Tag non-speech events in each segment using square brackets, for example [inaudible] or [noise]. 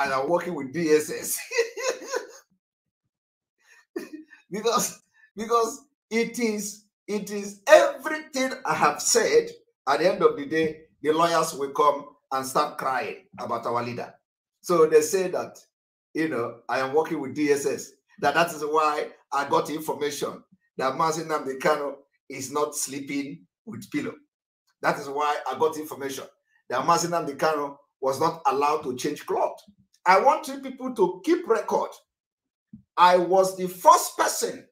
and are working with DSS. [laughs] because because it is it is everything I have said. At the end of the day, the lawyers will come and start crying about our leader. So they say that you know I am working with DSS. That that is why I got information that Mazinam Dekano is not sleeping with pillow. That is why I got information that Mazinam Dekano was not allowed to change clothes. I want you people to keep record. I was the first person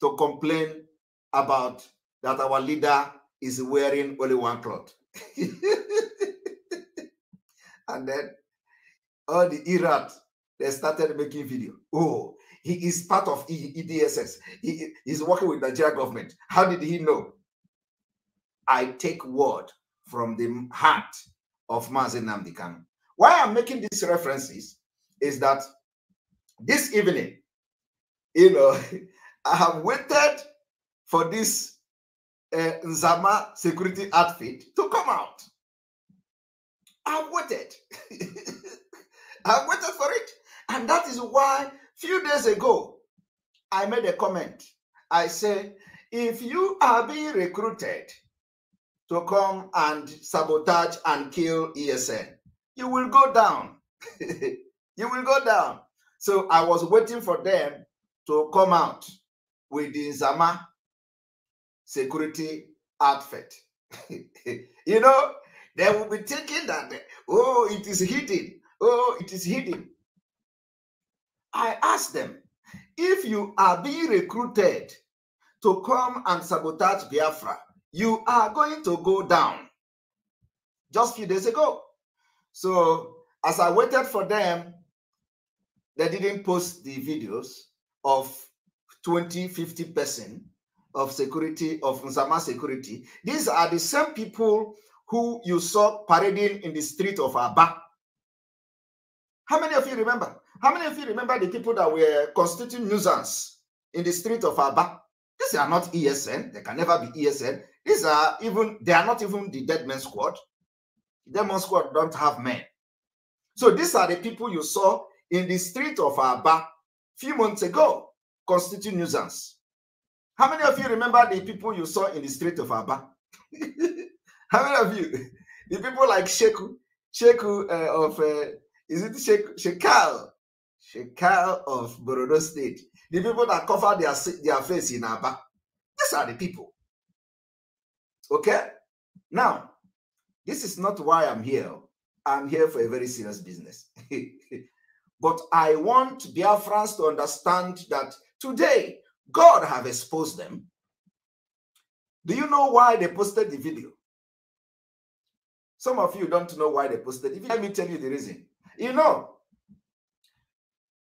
to complain about that our leader is wearing only one cloth. [laughs] and then all the Iraq, they started making video. Oh, he is part of EDSS. He is working with Nigeria government. How did he know? I take word from the heart of Mazen Namdekan. Why I'm making these references is that this evening, you know, [laughs] I have waited for this uh, Nzama security outfit to come out. I've waited. [laughs] I've waited for it. And that is why few days ago, I made a comment. I say, if you are being recruited to come and sabotage and kill ESN, you will go down. [laughs] you will go down. So I was waiting for them to come out with the Zama security outfit. [laughs] you know, they will be thinking that, oh, it is hidden. Oh, it is hidden. I asked them, if you are being recruited to come and sabotage Biafra, you are going to go down. Just a few days ago, So as I waited for them, they didn't post the videos of 20, 50 percent of security, of Nzama security. These are the same people who you saw parading in the street of Aba. How many of you remember? How many of you remember the people that were constituting nuisance in the street of Aba? These are not ESN. They can never be ESN. These are even, they are not even the dead men squad. Demon Squad don't have men. So these are the people you saw in the street of Aba few months ago constitute nuisance. How many of you remember the people you saw in the street of Aba? [laughs] How many of you? The people like Sheku, Sheku uh, of, uh, is it Sheku? Shekal? Shekal of Borodo State. The people that cover their, their face in Aba. These are the people. Okay? Now, this is not why I'm here. Oh. I'm here for a very serious business. [laughs] but I want Biafrans to understand that today God have exposed them. Do you know why they posted the video? Some of you don't know why they posted it. Let me tell you the reason. You know,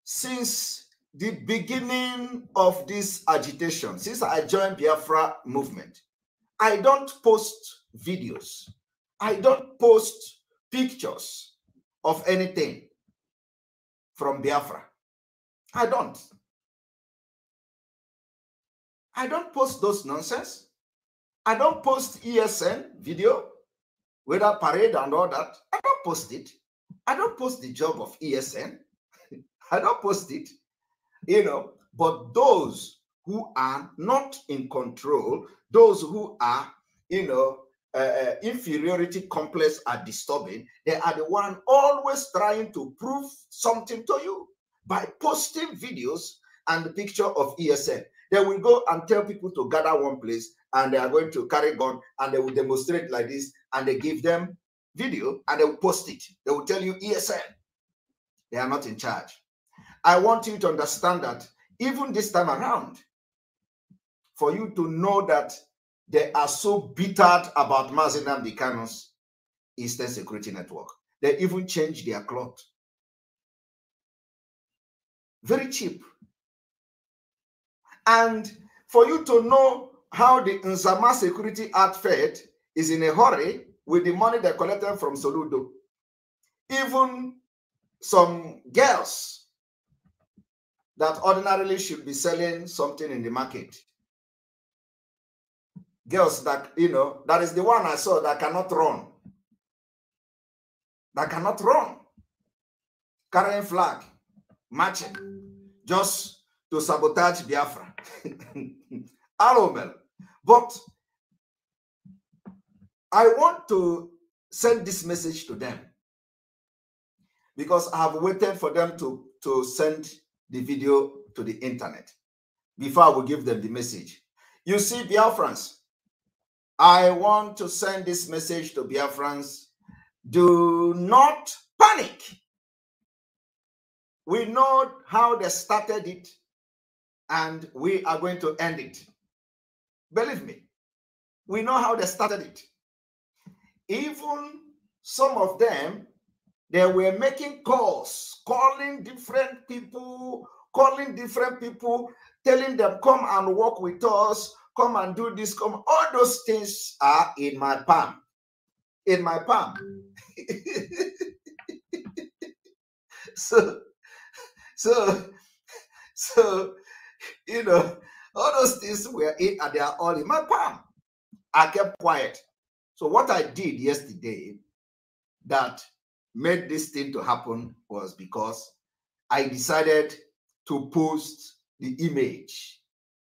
since the beginning of this agitation, since I joined Biafra movement, I don't post videos. I don't post pictures of anything from Biafra. I don't. I don't post those nonsense. I don't post ESN video, whether parade and all that. I don't post it. I don't post the job of ESN. [laughs] I don't post it. You know, but those who are not in control, those who are, you know, uh, uh, inferiority complex are disturbing, they are the one always trying to prove something to you by posting videos and the picture of ESN. They will go and tell people to gather one place and they are going to carry gun and they will demonstrate like this and they give them video and they will post it. They will tell you ESN. They are not in charge. I want you to understand that even this time around, for you to know that they are so bittered about Mazinam Dikano's Eastern Security Network. They even change their cloth. Very cheap. And for you to know how the Nzama Security outfit is in a hurry with the money they collected from Soludo. Even some girls that ordinarily should be selling something in the market girls that, you know, that is the one I saw that cannot run. That cannot run. Carrying flag, marching, just to sabotage Biafra. Aromel. [laughs] But I want to send this message to them because I have waited for them to, to send the video to the internet before I will give them the message. You see, Biafrans, I want to send this message to Biafrans. Do not panic. We know how they started it, and we are going to end it. Believe me, we know how they started it. Even some of them, they were making calls, calling different people, calling different people, telling them, come and work with us, come and do this, come. All those things are in my palm. In my palm. [laughs] so, so, so, you know, all those things were in and they are all in my palm. I kept quiet. So, what I did yesterday that made this thing to happen was because I decided to post the image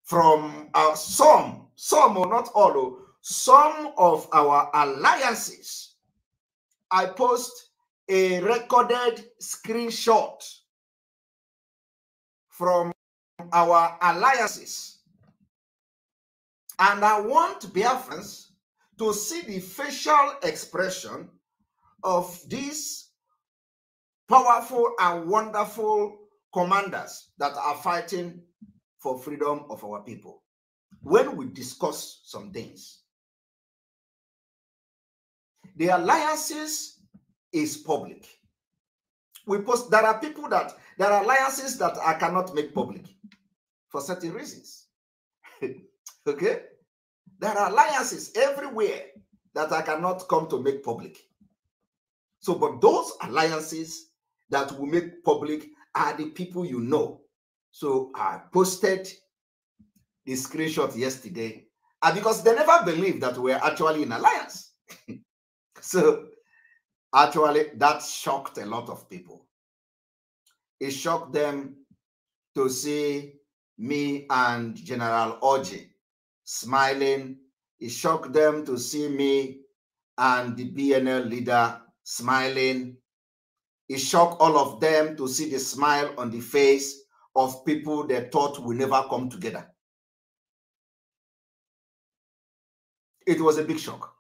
from uh, some, some or not all, oh, some of our alliances. I post a recorded screenshot from our alliances. And I want Biafrans to see the facial expression of these powerful and wonderful commanders that are fighting for freedom of our people. When we discuss some things, the alliances is public. We post there are people that there are alliances that I cannot make public for certain reasons. [laughs] okay? There are alliances everywhere that I cannot come to make public. So, but those alliances that will make public are the people you know so I posted the screenshot yesterday and because they never believed that we are actually in alliance. [laughs] so actually, that shocked a lot of people. It shocked them to see me and General Oji smiling. It shocked them to see me and the BNL leader smiling. It shocked all of them to see the smile on the face of people they thought will never come together. It was a big shock.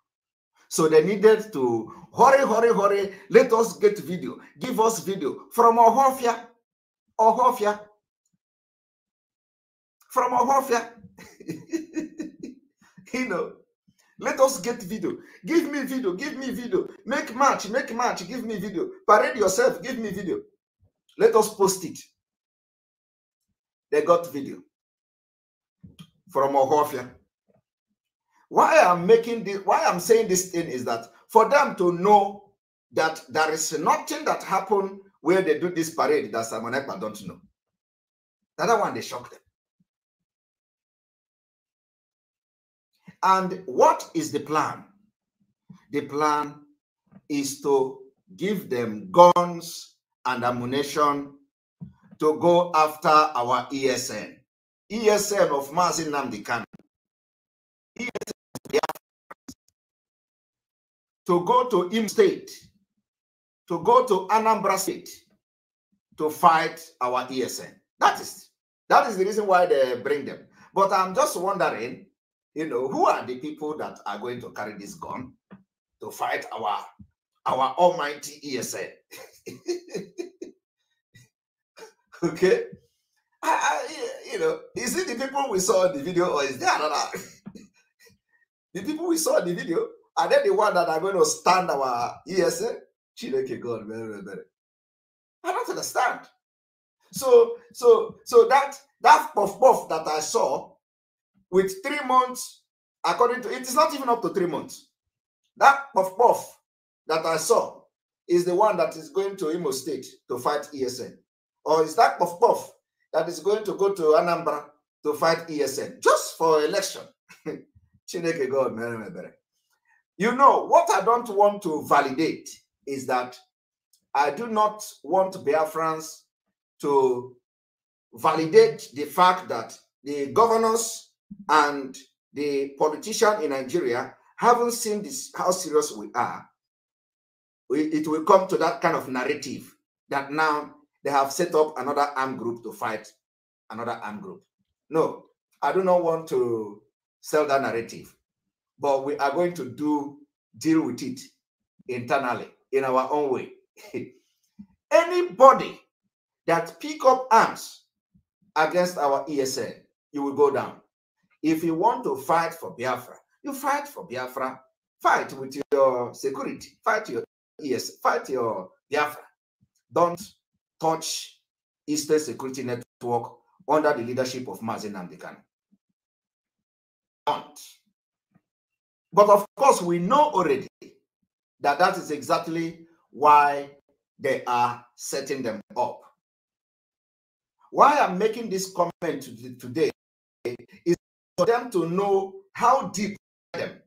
So they needed to hurry, hurry, hurry. Let us get video. Give us video from Ohofia. Ohofia. From Ohofia. [laughs] you know, let us get video. Give me video. Give me video. Make match. Make match. Give me video. Parade yourself. Give me video. Let us post it. They got video from Ohofia. Why I'm making this, why I'm saying this thing is that for them to know that there is nothing that happened where they do this parade that Simon Ekpa don't know. The other one, they shocked them. And what is the plan? The plan is to give them guns and ammunition to go after our ESN. ESN of Mazin Namdekan. ESN to go to Im State, to go to Anambra State to fight our ESN. That is that is the reason why they bring them. But I'm just wondering, you know, who are the people that are going to carry this gun to fight our our almighty ESN? [laughs] Okay? I, I, you know, is it the people we saw in the video or is there another? [laughs] the people we saw in the video, are they the one that are going to stand our ESA? Chineke God, very, very, very. I don't understand. So, so, so that that puff puff that I saw with three months, according to it is not even up to three months. That puff puff that I saw is the one that is going to Imo State to fight ESN or is that puff puff that is going to go to Anambra to fight ESN just for election? [laughs] Chineke God, you know what I don't want to validate is that I do not want Biafrans to validate the fact that the governors and the politicians in Nigeria haven't seen this how serious we are. We, it will come to that kind of narrative that now they have set up another armed group to fight another armed group. No, I do not want to sell that narrative, but we are going to do deal with it internally in our own way. [laughs] Anybody that pick up arms against our ESN, you will go down. If you want to fight for Biafra, you fight for Biafra. Fight with your security. Fight your yes. Fight your Biafra. Don't touch Eastern Security Network under the leadership of Mazin Amdekan. But of course, we know already that that is exactly why they are setting them up. Why I'm making this comment today is for them to know how deep them.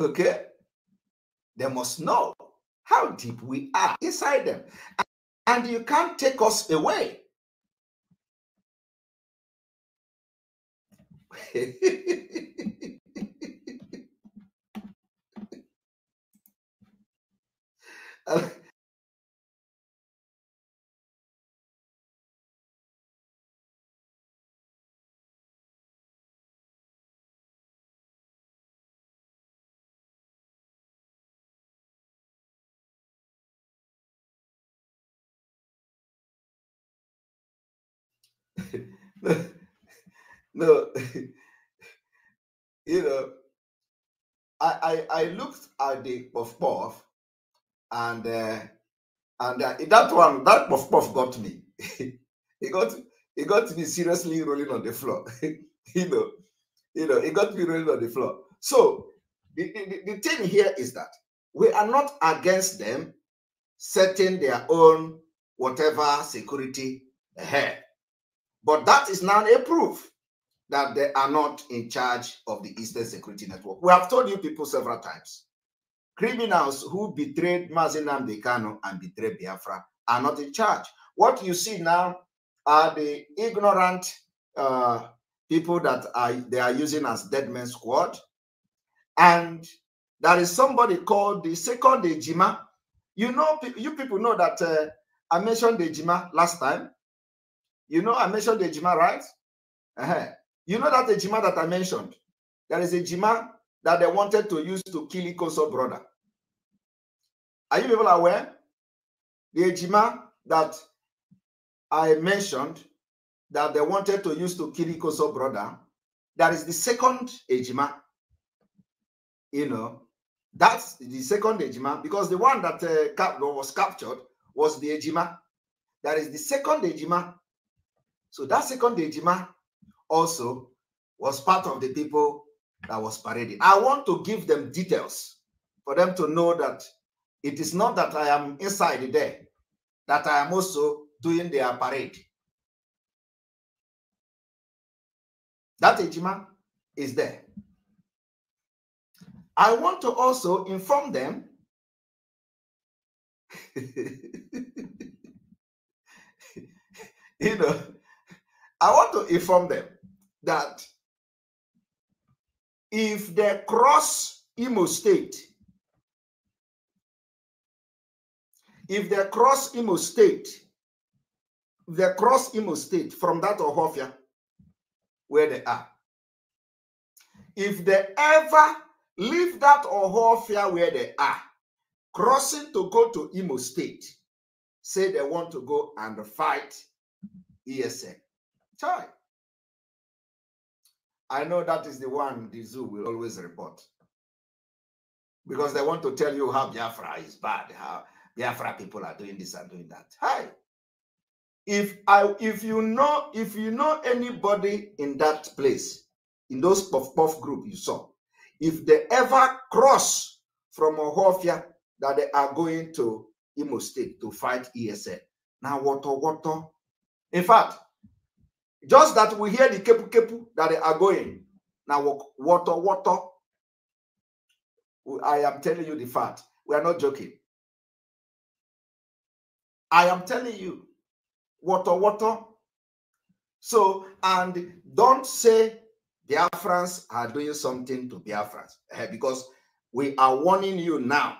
Okay? They must know how deep we are inside them. And you can't take us away. [laughs] [laughs] No, [laughs] you know, I, I I looked at the puff puff, and uh, and uh, that one that puff puff got me. [laughs] it got it got me seriously rolling on the floor. you know, you know, it got me rolling on the floor. So the, the, the thing here is that we are not against them setting their own whatever security ahead. Eh, but that is not a proof that they are not in charge of the Eastern Security Network. We have told you people several times. Criminals who betrayed Mazinam Dekano and betrayed Biafra are not in charge. What you see now are the ignorant uh, people that are they are using as dead men squad. And there is somebody called the second Ejima. You know, you people know that uh, I mentioned Ejima last time. You know, I mentioned the Ejima, right? Uh-huh. You know that Ejima that I mentioned? There is a Ejima that they wanted to use to kill Ikoso brother. Are you people aware? The Ejima that I mentioned that they wanted to use to kill Ikoso brother, that is the second Ejima. You know, that's the second Ejima because the one that uh, was captured was the Ejima. That is the second Ejima so that second Ejima also was part of the people that was parading. I want to give them details for them to know that it is not that I am inside there, that I am also doing their parade. That Ejima is there. I want to also inform them [laughs] you know I want to inform them that if they cross Imo State, if they cross Imo State, they cross Imo State from that Ohofia where they are. If they ever leave that Ohofia where they are, crossing to go to Imo State, say they want to go and fight ESN. Chai. I know that is the one the zoo will always report. Because they want to tell you how Biafra is bad, how Biafra people are doing this and doing that. Hi. If I if you know if you know anybody in that place, in those puff puff group you saw, if they ever cross from Ohofia that they are going to Imo State to fight ESN. Now, water water. In fact, just that we hear the kepu kepu that they are going. Now, water, water. I am telling you the fact. We are not joking. I am telling you, water, water. So, and don't say Biafrans are doing something to Biafrans eh, because we are warning you now.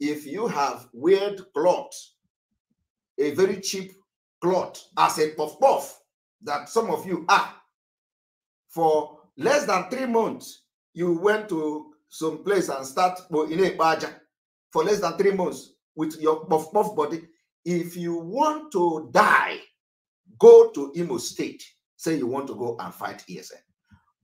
If you have weird cloth, a very cheap cloth as a puff puff, that some of you are. For less than three months, you went to some place and start in a baja for less than three months with your puff puff body. If you want to die, go to Imo State. Say you want to go and fight ESN.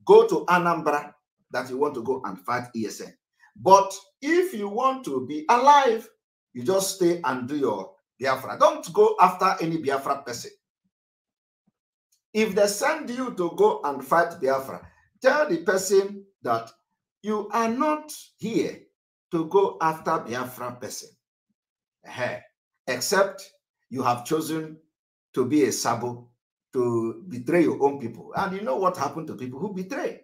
Go to Anambra that you want to go and fight ESN. But if you want to be alive, you just stay and do your Biafra. Don't go after any Biafra person. If they send you to go and fight Biafra, tell the person that you are not here to go after Biafra person, except you have chosen to be a sabo to betray your own people. And you know what happened to people who betray.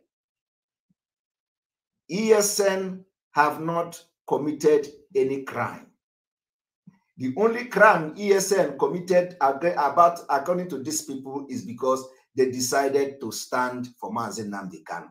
ESN have not committed any crime. The only crime ESN committed about according to these people is because they decided to stand for Mazen Namdekan.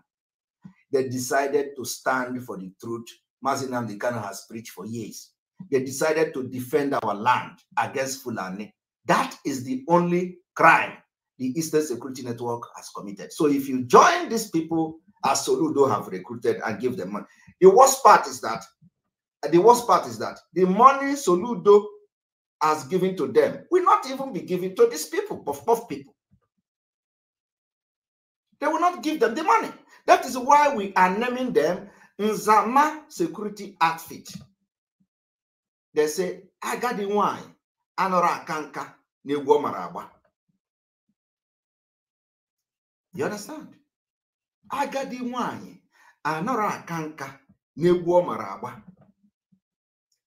They decided to stand for the truth Mazen Namdekan has preached for years. They decided to defend our land against Fulani. That is the only crime the Eastern Security Network has committed. So if you join these people as Soludo have recruited and give them money, the worst part is that the worst part is that the money Soludo has given to them will not even be given to these people, puff puff people. They will not give them the money. That is why we are naming them Nzama Security Outfit. They say, Agadi nwanyị anọrọ akanka na-egwu You understand? Agadi nwanyị anọrọ akanka na-egwu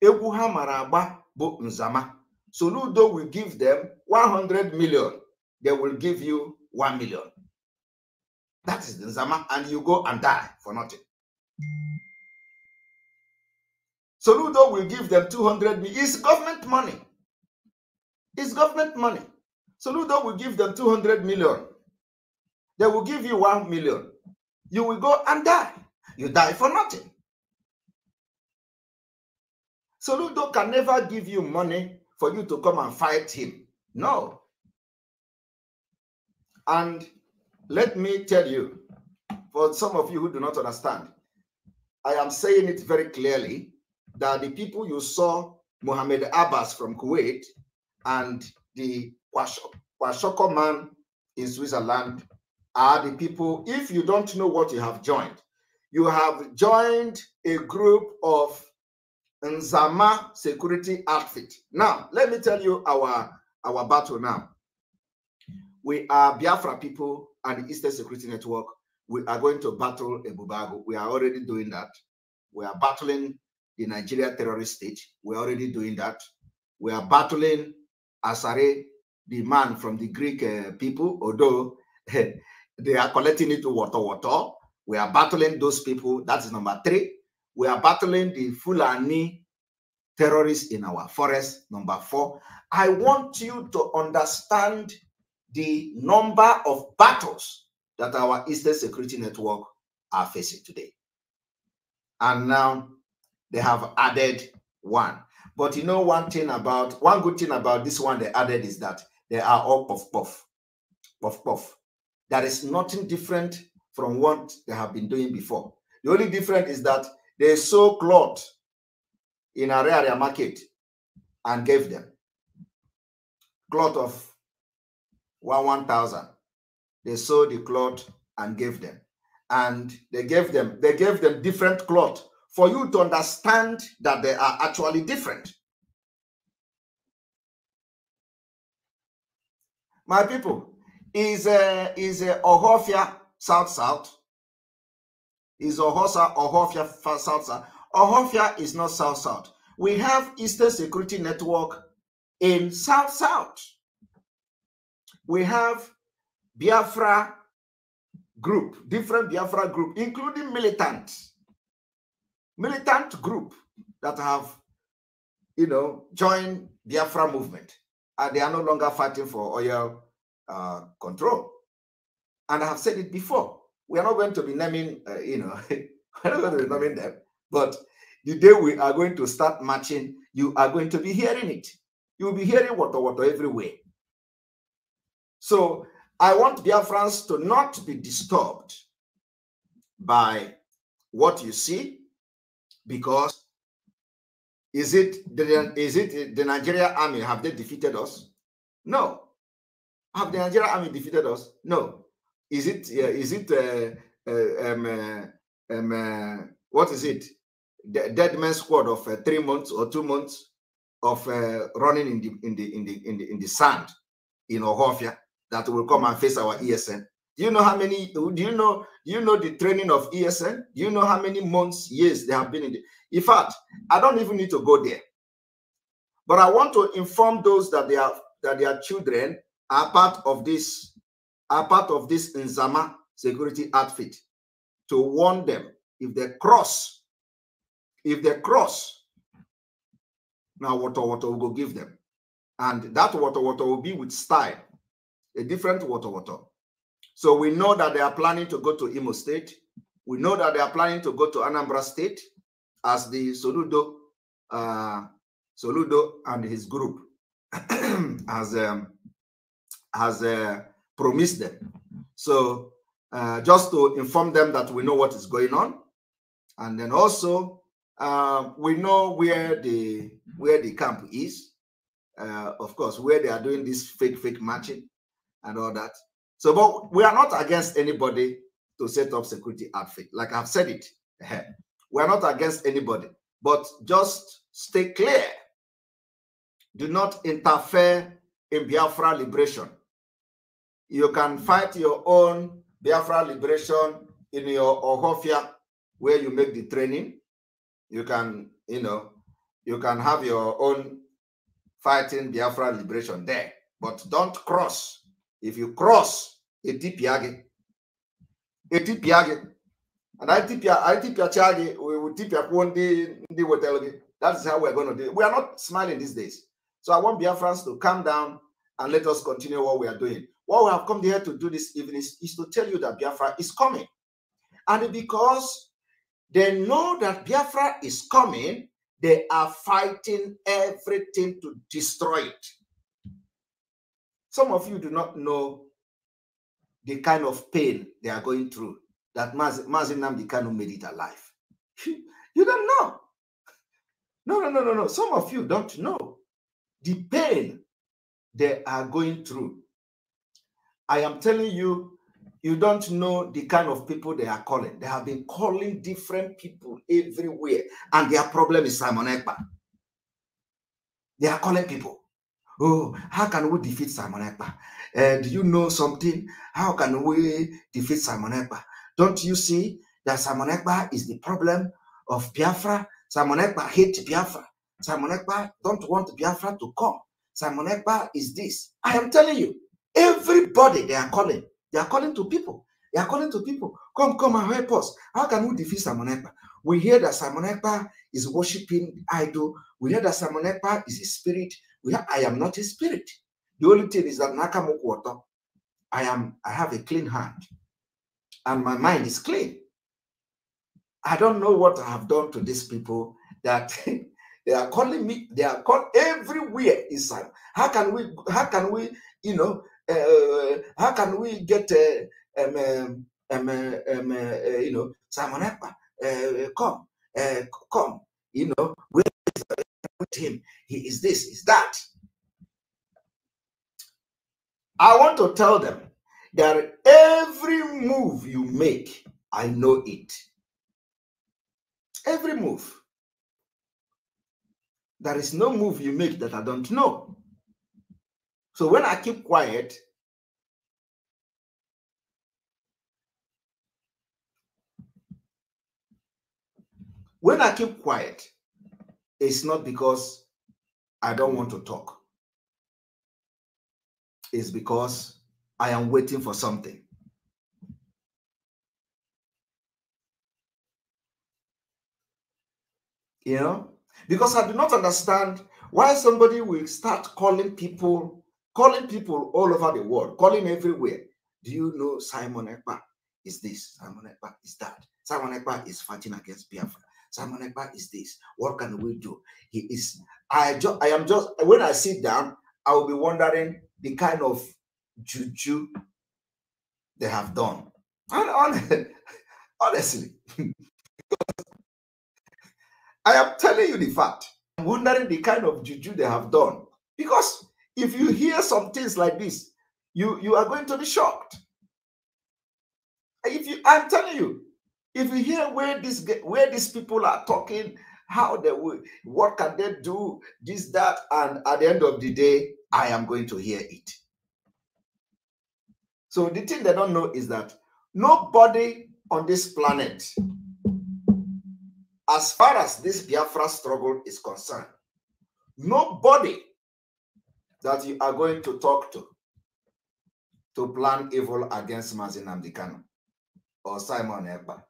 ọ ha nzama. Soludo will give them 100 million. They will give you 1 million. That is the Nzama, and you go and die for nothing. Soludo will give them 200 million. It's government money. It's government money. Soludo will give them 200 million. They will give you 1 million. You will go and die. You die for nothing. Soludo can never give you money for you to come and fight him. No. And let me tell you, for some of you who do not understand, I am saying it very clearly that the people you saw, Mohammed Abbas from Kuwait and the Kwashoko man in Switzerland, are the people, if you don't know what you have joined, you have joined a group of Nzama security outfit. Now, let me tell you our, our battle now. We are Biafra people and the Eastern Security Network. We are going to battle Ebubago. We are already doing that. We are battling the Nigeria terrorist state. We are already doing that. We are battling Asare, the man from the Greek uh, people, although [laughs] they are collecting it to water water. We are battling those people. That is number three we are battling the Fulani terrorists in our forest. Number four, I want you to understand the number of battles that our Eastern Security Network are facing today. And now they have added one. But you know one thing about, one good thing about this one they added is that they are all puff puff, puff puff. There is nothing different from what they have been doing before. The only difference is that they sold cloth in area market and gave them cloth of one one thousand. They sold the cloth and gave them, and they gave them they gave them different cloth for you to understand that they are actually different. My people, is a, uh, is a uh, Ohofia South South? is Ohosa, Ohofia, South Ohofia is not South South. We have Eastern Security Network in South South. We have Biafra group, different Biafra group, including militant, militant group that have, you know, joined Biafra movement, and they are no longer fighting for oil uh, control. And I have said it before we are not going to be naming, uh, you know, [laughs] we're not going to be naming them, but the day we are going to start marching, you are going to be hearing it. You will be hearing water, water everywhere. So I want Biafrans to not be disturbed by what you see, because is it the, is it the Nigerian army? Have they defeated us? No. Have the Nigerian army defeated us? No is it mm. is it uh, uh, um, uh, um, what is it? The dead man squad of three months or two months of running in the in the in the in the, in the sand in Ohofia that will come and face our ESN. Do you know how many? Do you know? Do you know the training of ESN? Do you know how many months, years they have been in? The, in fact, I don't even need to go there. But I want to inform those that they are that their children are part of this are part of this Nzama security outfit to warn them if they cross, if they cross, now water water will go give them. And that water water will be with style, a different water water. So we know that they are planning to go to Imo State. We know that they are planning to go to Anambra State as the Soludo, uh, Soludo and his group has [clears throat] um, has uh, Promise them. So uh, just to inform them that we know what is going on, and then also uh, we know where the where the camp is. Uh, of course, where they are doing this fake fake matching and all that. So, but we are not against anybody to set up security outfit. Like I've said it, we are not against anybody, but just stay clear. Do not interfere in Biafra liberation you can fight your own Biafra liberation in your Ohofia, where you make the training. You can, you know, you can have your own fighting Biafra liberation there. But don't cross. If you cross Etipiage, Etipiage, and I tip I tip Chagi, we will tip your one day, That's how we're going to do it. We are not smiling these days. So I want Biafrans to calm down and let us continue what we are doing. What we have come here to do this evening is, is to tell you that Biafra is coming. And because they know that Biafra is coming, they are fighting everything to destroy it. Some of you do not know the kind of pain they are going through that Mazin Namdi Kanu made it alive. [laughs] You don't know. No, no, no, no, no. Some of you don't know the pain they are going through I am telling you, you don't know the kind of people they are calling. They have been calling different people everywhere, and their problem is Simon Ekpa. They are calling people. Oh, how can we defeat Simon Ekpa? Uh, do you know something? How can we defeat Simon Ekpa? Don't you see that Simon Ekpa is the problem of Biafra? Simon Ekpa hates Biafra. Simon Ekpa don't want Biafra to come. Simon Ekpa is this. I am telling you. Everybody, they are calling. They are calling to people. They are calling to people. Come, come and help us. How can we defeat Simon Ekpa? We hear that Simon Ekpa is worshiping idol. We hear that Simon Ekpa is a spirit. We I am not a spirit. The only thing is that Nakamoku water. I am. I have a clean hand, and my mind is clean. I don't know what I have done to these people that [laughs] they are calling me. They are called everywhere inside. How can we? How can we? You know, uh, how can we get a, uh, um, um, um, uh, you know Simon Ekpa come come you know with him he is this is that I want to tell them that every move you make I know it every move there is no move you make that I don't know so when I keep quiet, when I keep quiet, it's not because I don't want to talk. It's because I am waiting for something. You know? Because I do not understand why somebody will start calling people calling people all over the world, calling everywhere. Do you know Simon Ekpa is this? Simon Ekpa is that? Simon Ekpa is fighting against Biafra. Simon Ekpa is this. What can we do? He is. I just. I am just. When I sit down, I will be wondering the kind of juju they have done. And [laughs] honestly, [laughs] I am telling you the fact. I'm wondering the kind of juju they have done because if you hear some things like this, you, you are going to be shocked. If you, I'm telling you, if you hear where this where these people are talking, how they will, what can they do, this, that, and at the end of the day, I am going to hear it. So the thing they don't know is that nobody on this planet, as far as this Biafra struggle is concerned, nobody that you are going to talk to to plan evil against Mazin Amdekano or Simon Ekpa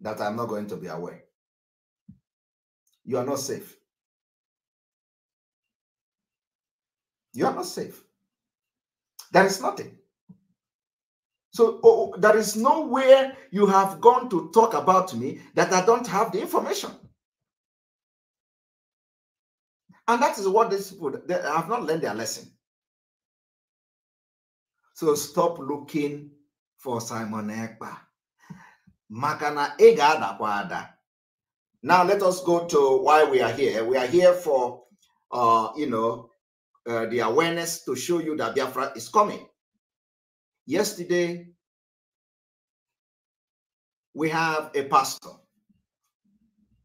that I'm not going to be aware. You are not safe. You are not safe. There is nothing. So oh, oh there is nowhere you have gone to talk about me that I don't have the information. And that is what these people they have not learned their lesson. So stop looking for Simon Ekpa. Makana Egada Kwada. Now let us go to why we are here. We are here for uh, you know uh, the awareness to show you that Biafra is coming. Yesterday, we have a pastor.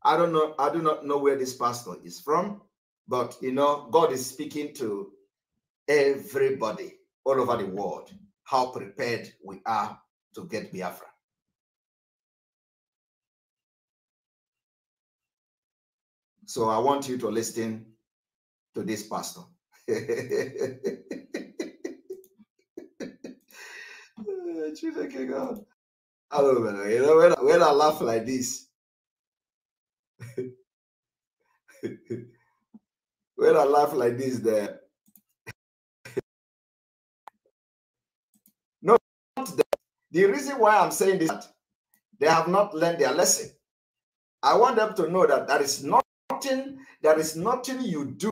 I don't know, I do not know where this pastor is from. But you know, God is speaking to everybody all over the world how prepared we are to get Biafra. So I want you to listen to this pastor. Chineke [laughs] God. I don't know. You know when, when I laugh like this. [laughs] when I laugh like this, there. [laughs] no, the reason why I'm saying this, they have not learned their lesson. I want them to know that there is nothing, there is nothing you do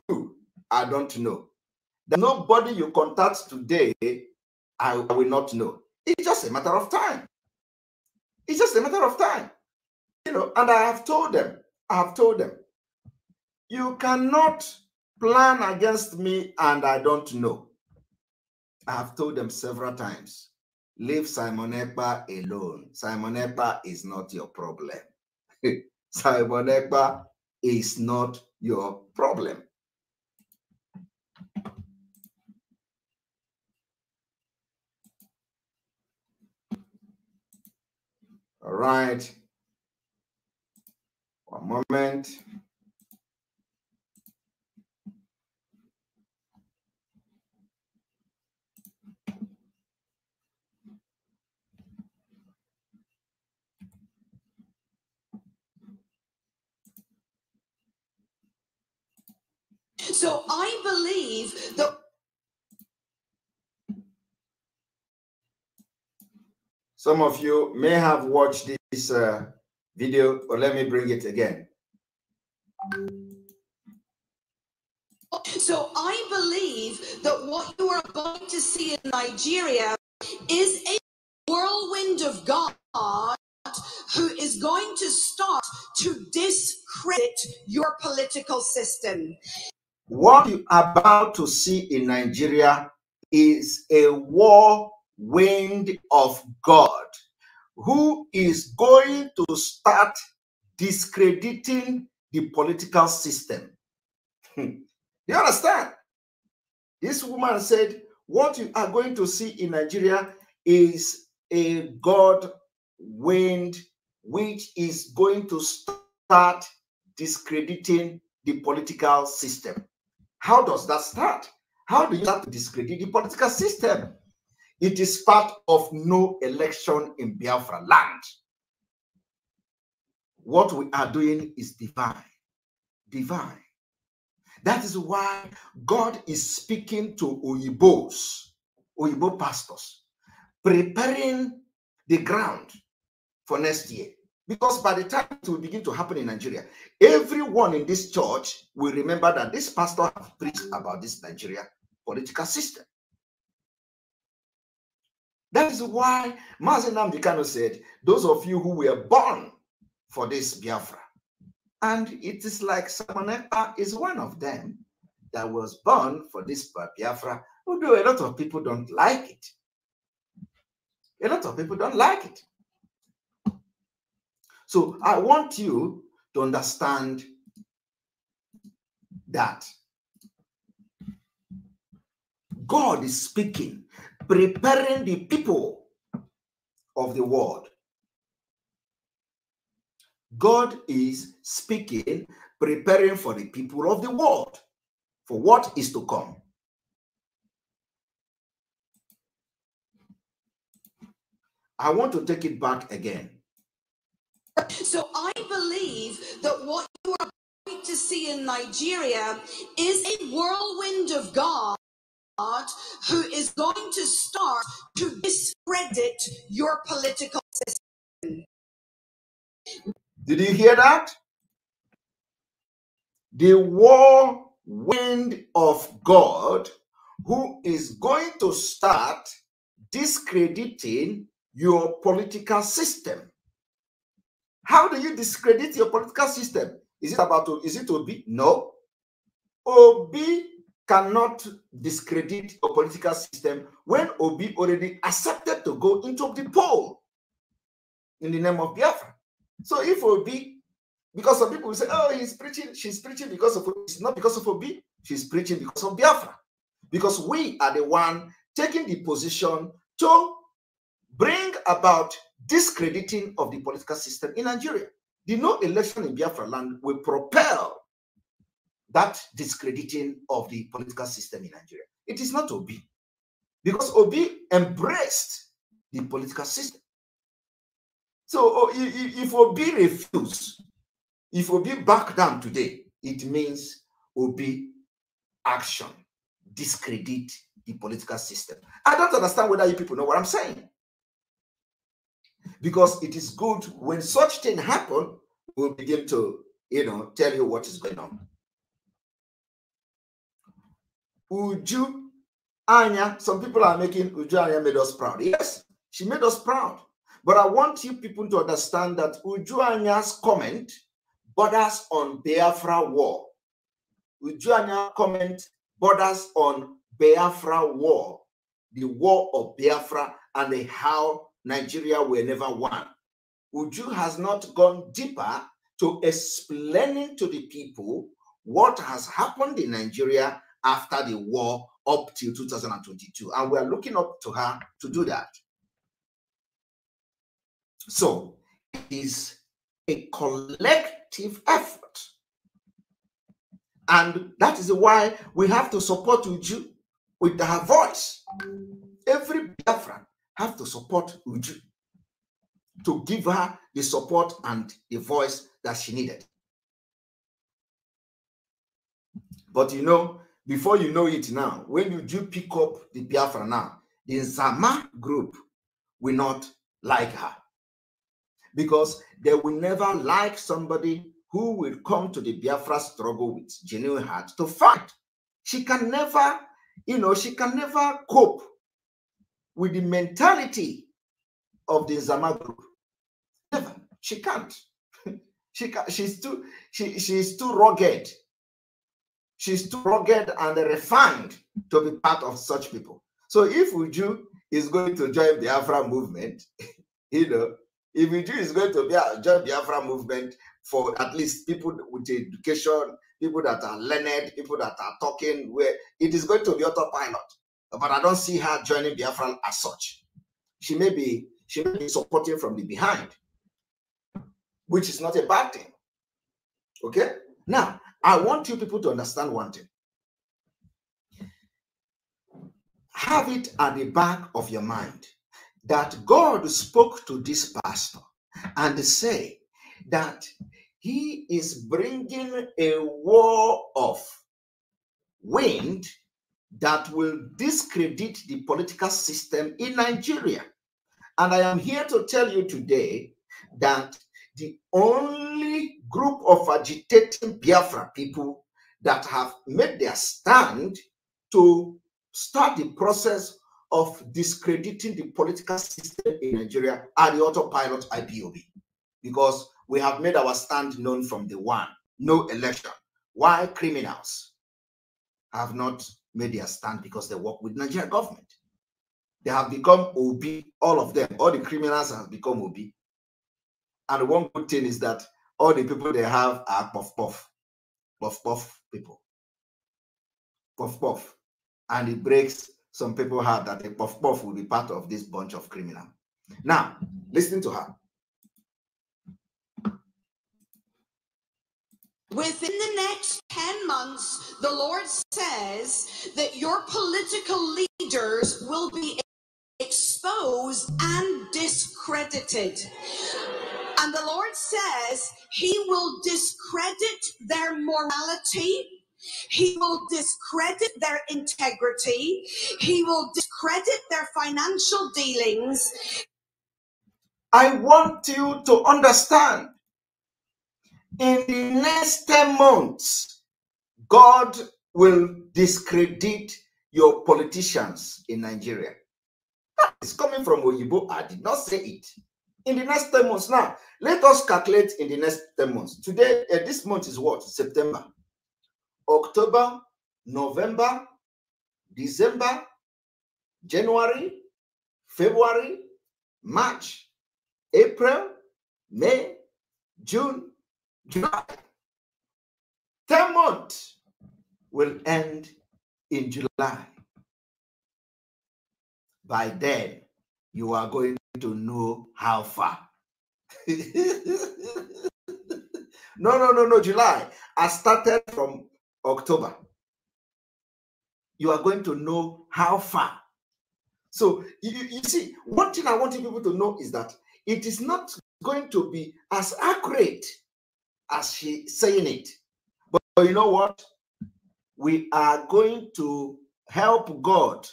I don't know. There's nobody you contact today I will not know. It's just a matter of time. It's just a matter of time. You know, and I have told them, I have told them, you cannot plan against me and I don't know. I have told them several times leave Simon alone. Simon is not your problem. [laughs] Simon is not your problem. All right. One moment. so I believe that. Some of you may have watched this uh, video, but let me bring it again. So I believe that what you are about to see in Nigeria is a whirlwind of God who is going to start to discredit your political system. What you are about to see in Nigeria is a war wind of God who is going to start discrediting the political system. Hmm. you understand? This woman said, What you are going to see in Nigeria is a God wind which is going to start discrediting the political system. How does that start? How do you start to discredit the political system? It is part of no election in Biafra land. What we are doing is divine. Divine. That is why God is speaking to Oyibos, Oyibo pastors, preparing the ground for next year. Because by the time it will begin to happen in Nigeria, everyone in this church will remember that this pastor preached about this Nigeria political system. That is why Mazenam Dikano said, those of you who were born for this Biafra, and it is like Samaneka is one of them that was born for this Biafra, although a lot of people don't like it. A lot of people don't like it. So I want you to understand that God is speaking, preparing the people of the world. God is speaking, preparing for the people of the world for what is to come. I want to take it back again. So I believe that what you are going to see in Nigeria is a whirlwind of God who is going to start to discredit your political system. Did you hear that? The whirlwind of God who is going to start discrediting your political system. How do you discredit your political system? Is it about is it Obi? No. Obi cannot discredit a political system when Obi already accepted to go into the poll in the name of Biafra. So if Obi, because some people will say, oh, he's preaching, she's preaching because of it's not because of Obi, she's preaching because of Biafra. Because we are the one taking the position to bring about discrediting of the political system in Nigeria. The no election in Biafra land will propel that discrediting of the political system in Nigeria. It is not Obi, because Obi embraced the political system. So oh, if Obi refuse, if Obi back down today, it means Obi action discredit the political system. I don't understand whether you people know what I'm saying because it is good when such thing happen, we'll begin to, you know, tell you what is going on. Uju Anya, some people are making Uju Anya made us proud. Yes, she made us proud. But I want you people to understand that Uju Anya's comment borders on Biafra war. Uju Anya comment borders on Biafra war, the war of Biafra and the how Nigeria were never one. Uju has not gone deeper to explaining to the people what has happened in Nigeria after the war up till 2022. And we are looking up to her to do that. So it is a collective effort. And that is why we have to support Uju with her voice. Every Biafran have to support Uju to give her the support and the voice that she needed. But you know, before you know it now, when you do pick up the Biafra now, the Zama group will not like her because they will never like somebody who will come to the Biafra struggle with genuine heart to fight. She can never, you know, she can never cope with the mentality of the Zama group. Never. She can't. [laughs] she can't. She's too. She she's too rugged. She's too rugged and refined to be part of such people. So if Uju is going to join the Afra movement, [laughs] you know, if Uju is going to be a, uh, join the Afra movement for at least people with education, people that are learned, people that are talking, where it is going to be autopilot but I don't see her joining Biafra as such. She may be she may be supporting from the behind, which is not a bad thing. Okay. Now I want you people to understand one thing. Have it at the back of your mind that God spoke to this pastor and say that he is bringing a war of wind that will discredit the political system in Nigeria. And I am here to tell you today that the only group of agitating Biafra people that have made their stand to start the process of discrediting the political system in Nigeria are the autopilot IPOB. Because we have made our stand known from the one no election. Why criminals have not made their stand because they work with Nigerian government. They have become OB, all of them. All the criminals have become OB. And one good thing is that all the people they have are puff puff, puff puff people, puff puff, and it breaks some people heart that the puff puff will be part of this bunch of criminal. Now, listen to her. Within the next 10 months, the Lord says that your political leaders will be exposed and discredited. And the Lord says he will discredit their morality. He will discredit their integrity. He will discredit their financial dealings. I want you to understand in the next 10 months, God will discredit your politicians in Nigeria. That is coming from Oyibo. I did not say it. In the next 10 months. Now, let us calculate in the next 10 months. Today, uh, this month is what? September, October, November, December, January, February, March, April, May, June, July. 10 month will end in July. By then, you are going to know how far. [laughs] no, no, no, no, July. I started from October. You are going to know how far. So, you, you see, one thing I want people to know is that it is not going to be as accurate as she saying it. But, but you know what? We are going to help God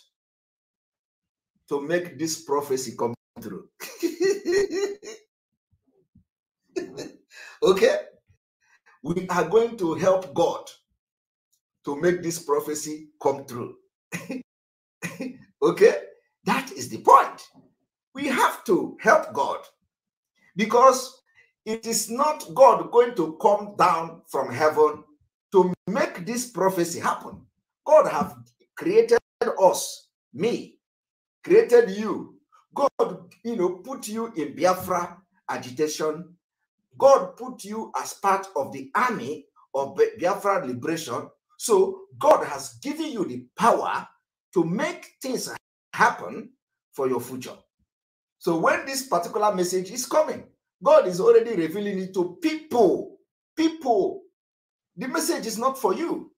to make this prophecy come through. [laughs] okay? We are going to help God to make this prophecy come through. [laughs] okay? That is the point. We have to help God because it is not God going to come down from heaven to make this prophecy happen. God have created us, me, created you. God, you know, put you in Biafra agitation. God put you as part of the army of Biafra liberation. So God has given you the power to make things happen for your future. So when this particular message is coming, God is already revealing it to people. People. The message is not for you.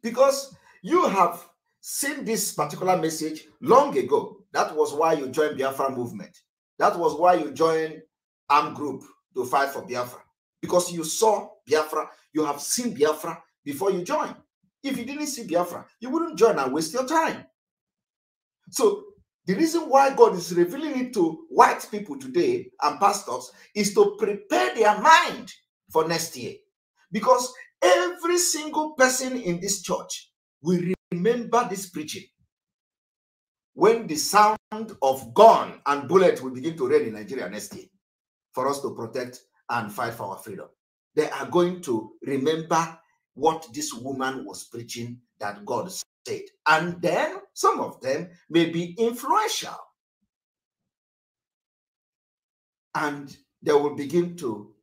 Because you have seen this particular message long ago. That was why you joined Biafra movement. That was why you joined Arm group to fight for Biafra. Because you saw Biafra, you have seen Biafra before you join. If you didn't see Biafra, you wouldn't join and waste your time. So the reason why God is revealing it to white people today and pastors is to prepare their mind for next year. Because every single person in this church will remember this preaching when the sound of gun and bullet will begin to rain in Nigeria next year for us to protect and fight for our freedom. They are going to remember what this woman was preaching that God said. And then some of them may be influential. And they will begin to,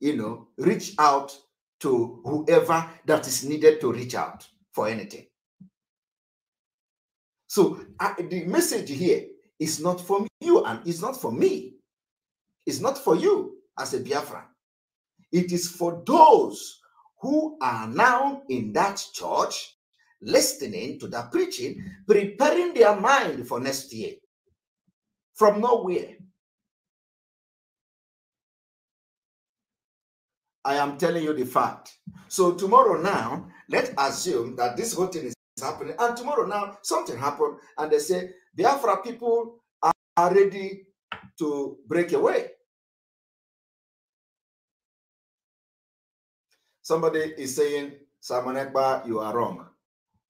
you know, reach out to whoever that is needed to reach out for anything. So the message here is not for you and it's not for me. It's not for you as a Biafran. It is for those who are now in that church listening to that preaching, preparing their mind for next year from nowhere. I am telling you the fact. So tomorrow now, let's assume that this whole thing is happening. And tomorrow now, something happened, and they say Biafra people are ready to break away. Somebody is saying, Simon Ekba, you are wrong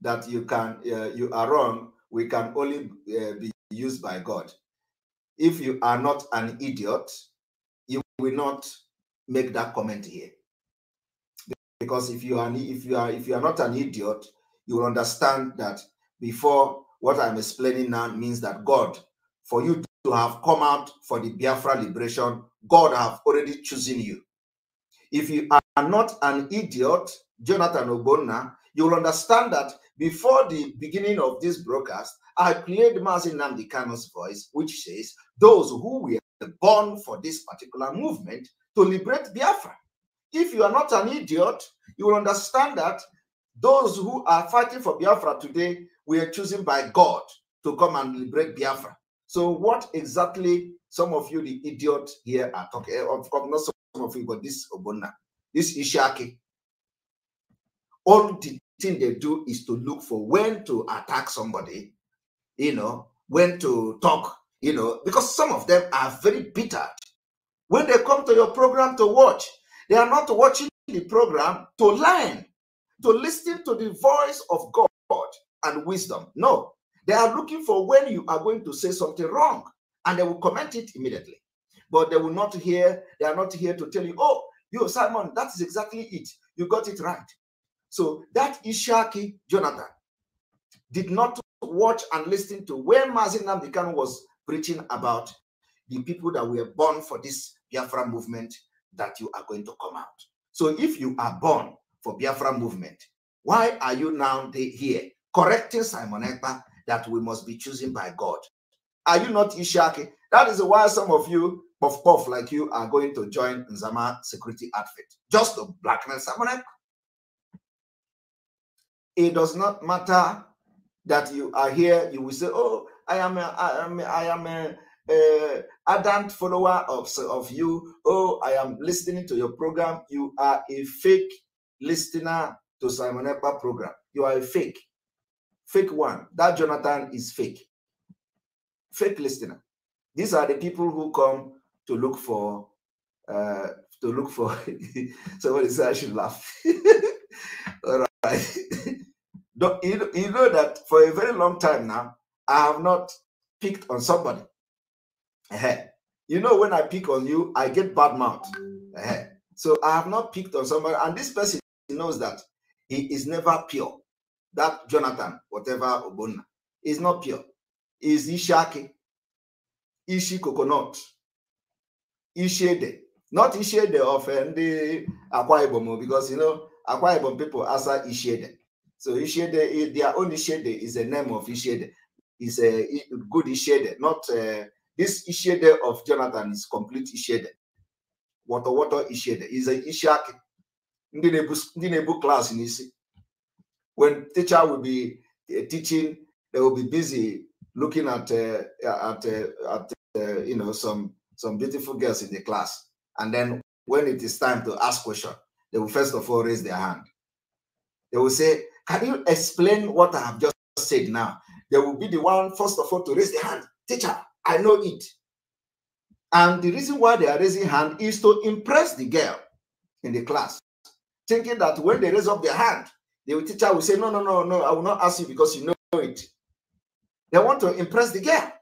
that you can uh, you are wrong we can only uh, be used by god if you are not an idiot you will not make that comment here because if you are if you are if you are not an idiot you will understand that before what i'm explaining now means that god for you to have come out for the biafra liberation god have already chosen you if you are not an idiot jonathan ogbonna you will understand that before the beginning of this broadcast, I played Mazin Nandikano's voice, which says, Those who were born for this particular movement to liberate Biafra. If you are not an idiot, you will understand that those who are fighting for Biafra today were chosen by God to come and liberate Biafra. So, what exactly some of you, the idiot here, are talking of, of not some of you, but this Obona, this Ishake. all the thing they do is to look for when to attack somebody, you know, when to talk, you know, because some of them are very bitter. When they come to your program to watch, they are not watching the program to learn, to listen to the voice of God and wisdom. No, they are looking for when you are going to say something wrong and they will comment it immediately. But they will not hear, they are not here to tell you, oh, you, Simon, that is exactly it. You got it right. So that Ishaki Jonathan did not watch and listen to where Mazin was preaching about the people that were born for this Biafra movement that you are going to come out. So if you are born for Biafra movement, why are you now here correcting Simon that we must be chosen by God? Are you not Ishaki? That is why some of you, puff puff like you, are going to join Nzama security outfit just to blackmail Simon Ekpa. It does not matter that you are here. You will say, "Oh, I am, a, I am, a, I am a, a ardent follower of of you." Oh, I am listening to your program. You are a fake listener to Simon Epa program. You are a fake, fake one. That Jonathan is fake, fake listener. These are the people who come to look for uh, to look for [laughs] somebody said I should laugh. [laughs] All right. [laughs] you, know that for a very long time now, I have not picked on somebody. You know, when I pick on you, I get bad mouth. So I have not picked on somebody, and this person knows that he is never pure. That Jonathan, whatever Obona, is not pure. Is Ishaki, Ishi coconut, Ishede, not Ishede of the eh, Akwa because you know Akwa people answer Ishede. So Ishede, eh, their own Ishede is the name of Ishede, is a good Ishede, not uh, this Ishede of Jonathan is complete Ishede. Water, water Ishede is a Ishiaki. Ndị na-ebu class When teacher will be eh, teaching, they will be busy looking at uh, at uh, at uh, you know some some beautiful girls in the class, and then when it is time to ask question, they will first of all raise their hand. They will say, Can you explain what I have just said now? There will be the one, first of all, to raise the hand. Teacher, I know it. And the reason why they are raising hand is to impress the girl in the class, thinking that when they raise up their hand, the teacher will say, No, no, no, no, I will not ask you because you know it. They want to impress the girl.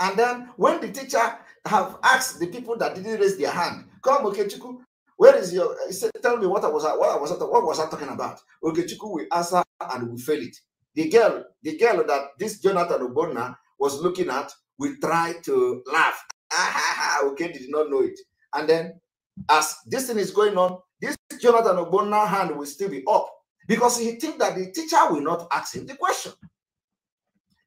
And then when the teacher have asked the people that didn't raise their hand, come, okay, chiku. Where is your? He said, "Tell me what I was. What I was. What was I talking about?" Ogechiku we answer and we fail it. The girl, the girl that this Jonathan Obona was looking at, we try to laugh. [laughs] Ah, ha, ha. Okay, did not know it. And then, as this thing is going on, this Jonathan Obona hand will still be up because he think that the teacher will not ask him the question.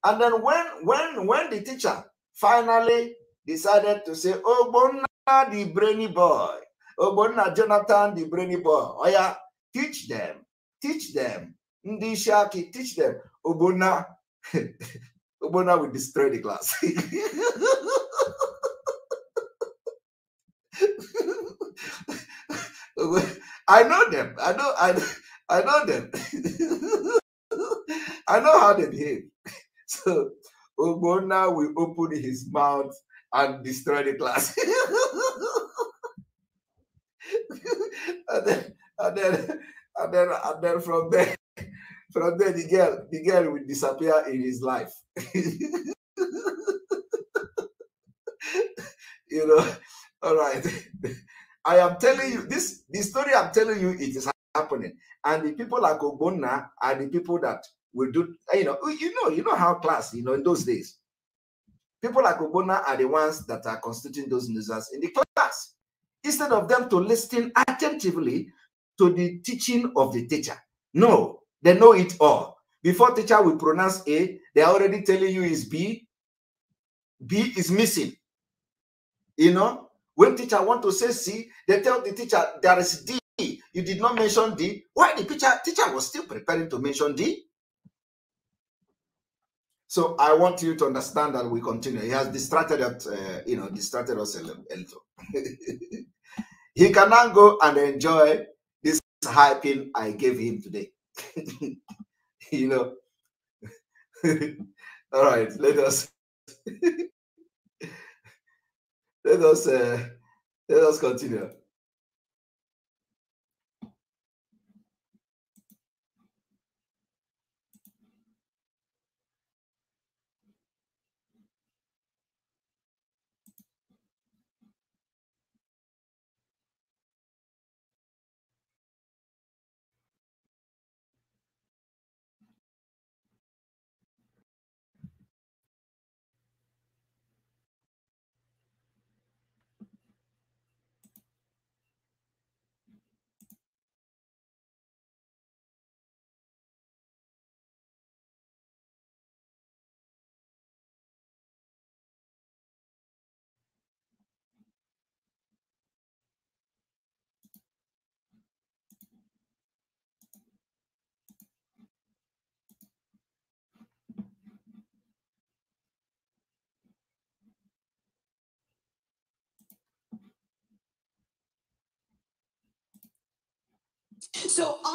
And then when when when the teacher finally decided to say, "Obonna, the brainy boy," Ogbonna Jonathan the brainy boy. Oh yeah, teach them, teach them. Ndi Shaki, teach them. Ogbonna, [laughs] Ogbonna will destroy the class. [laughs] I know them. I know. I I know them. [laughs] I know how they behave. So Ogbonna will open his mouth and destroy the class. and then and then and then and then from there from there the girl the girl will disappear in his life [laughs] you know all right i am telling you this the story i'm telling you it is happening and the people like ogbonna are the people that will do you know you know you know how class you know in those days people like ogbonna are the ones that are constituting those losers in the class instead of them to listen attentively to the teaching of the teacher. No, they know it all. Before teacher will pronounce A, they're already telling you is B. B is missing. You know, when teacher want to say C, they tell the teacher there is D. You did not mention D. Why the teacher, teacher was still preparing to mention D? So I want you to understand that we continue. He has distracted, us, uh, you know, distracted us a little. [laughs] He can now go and enjoy this hyping I gave him today. [laughs] you know. [laughs] All right, let us [laughs] let us uh, let us continue.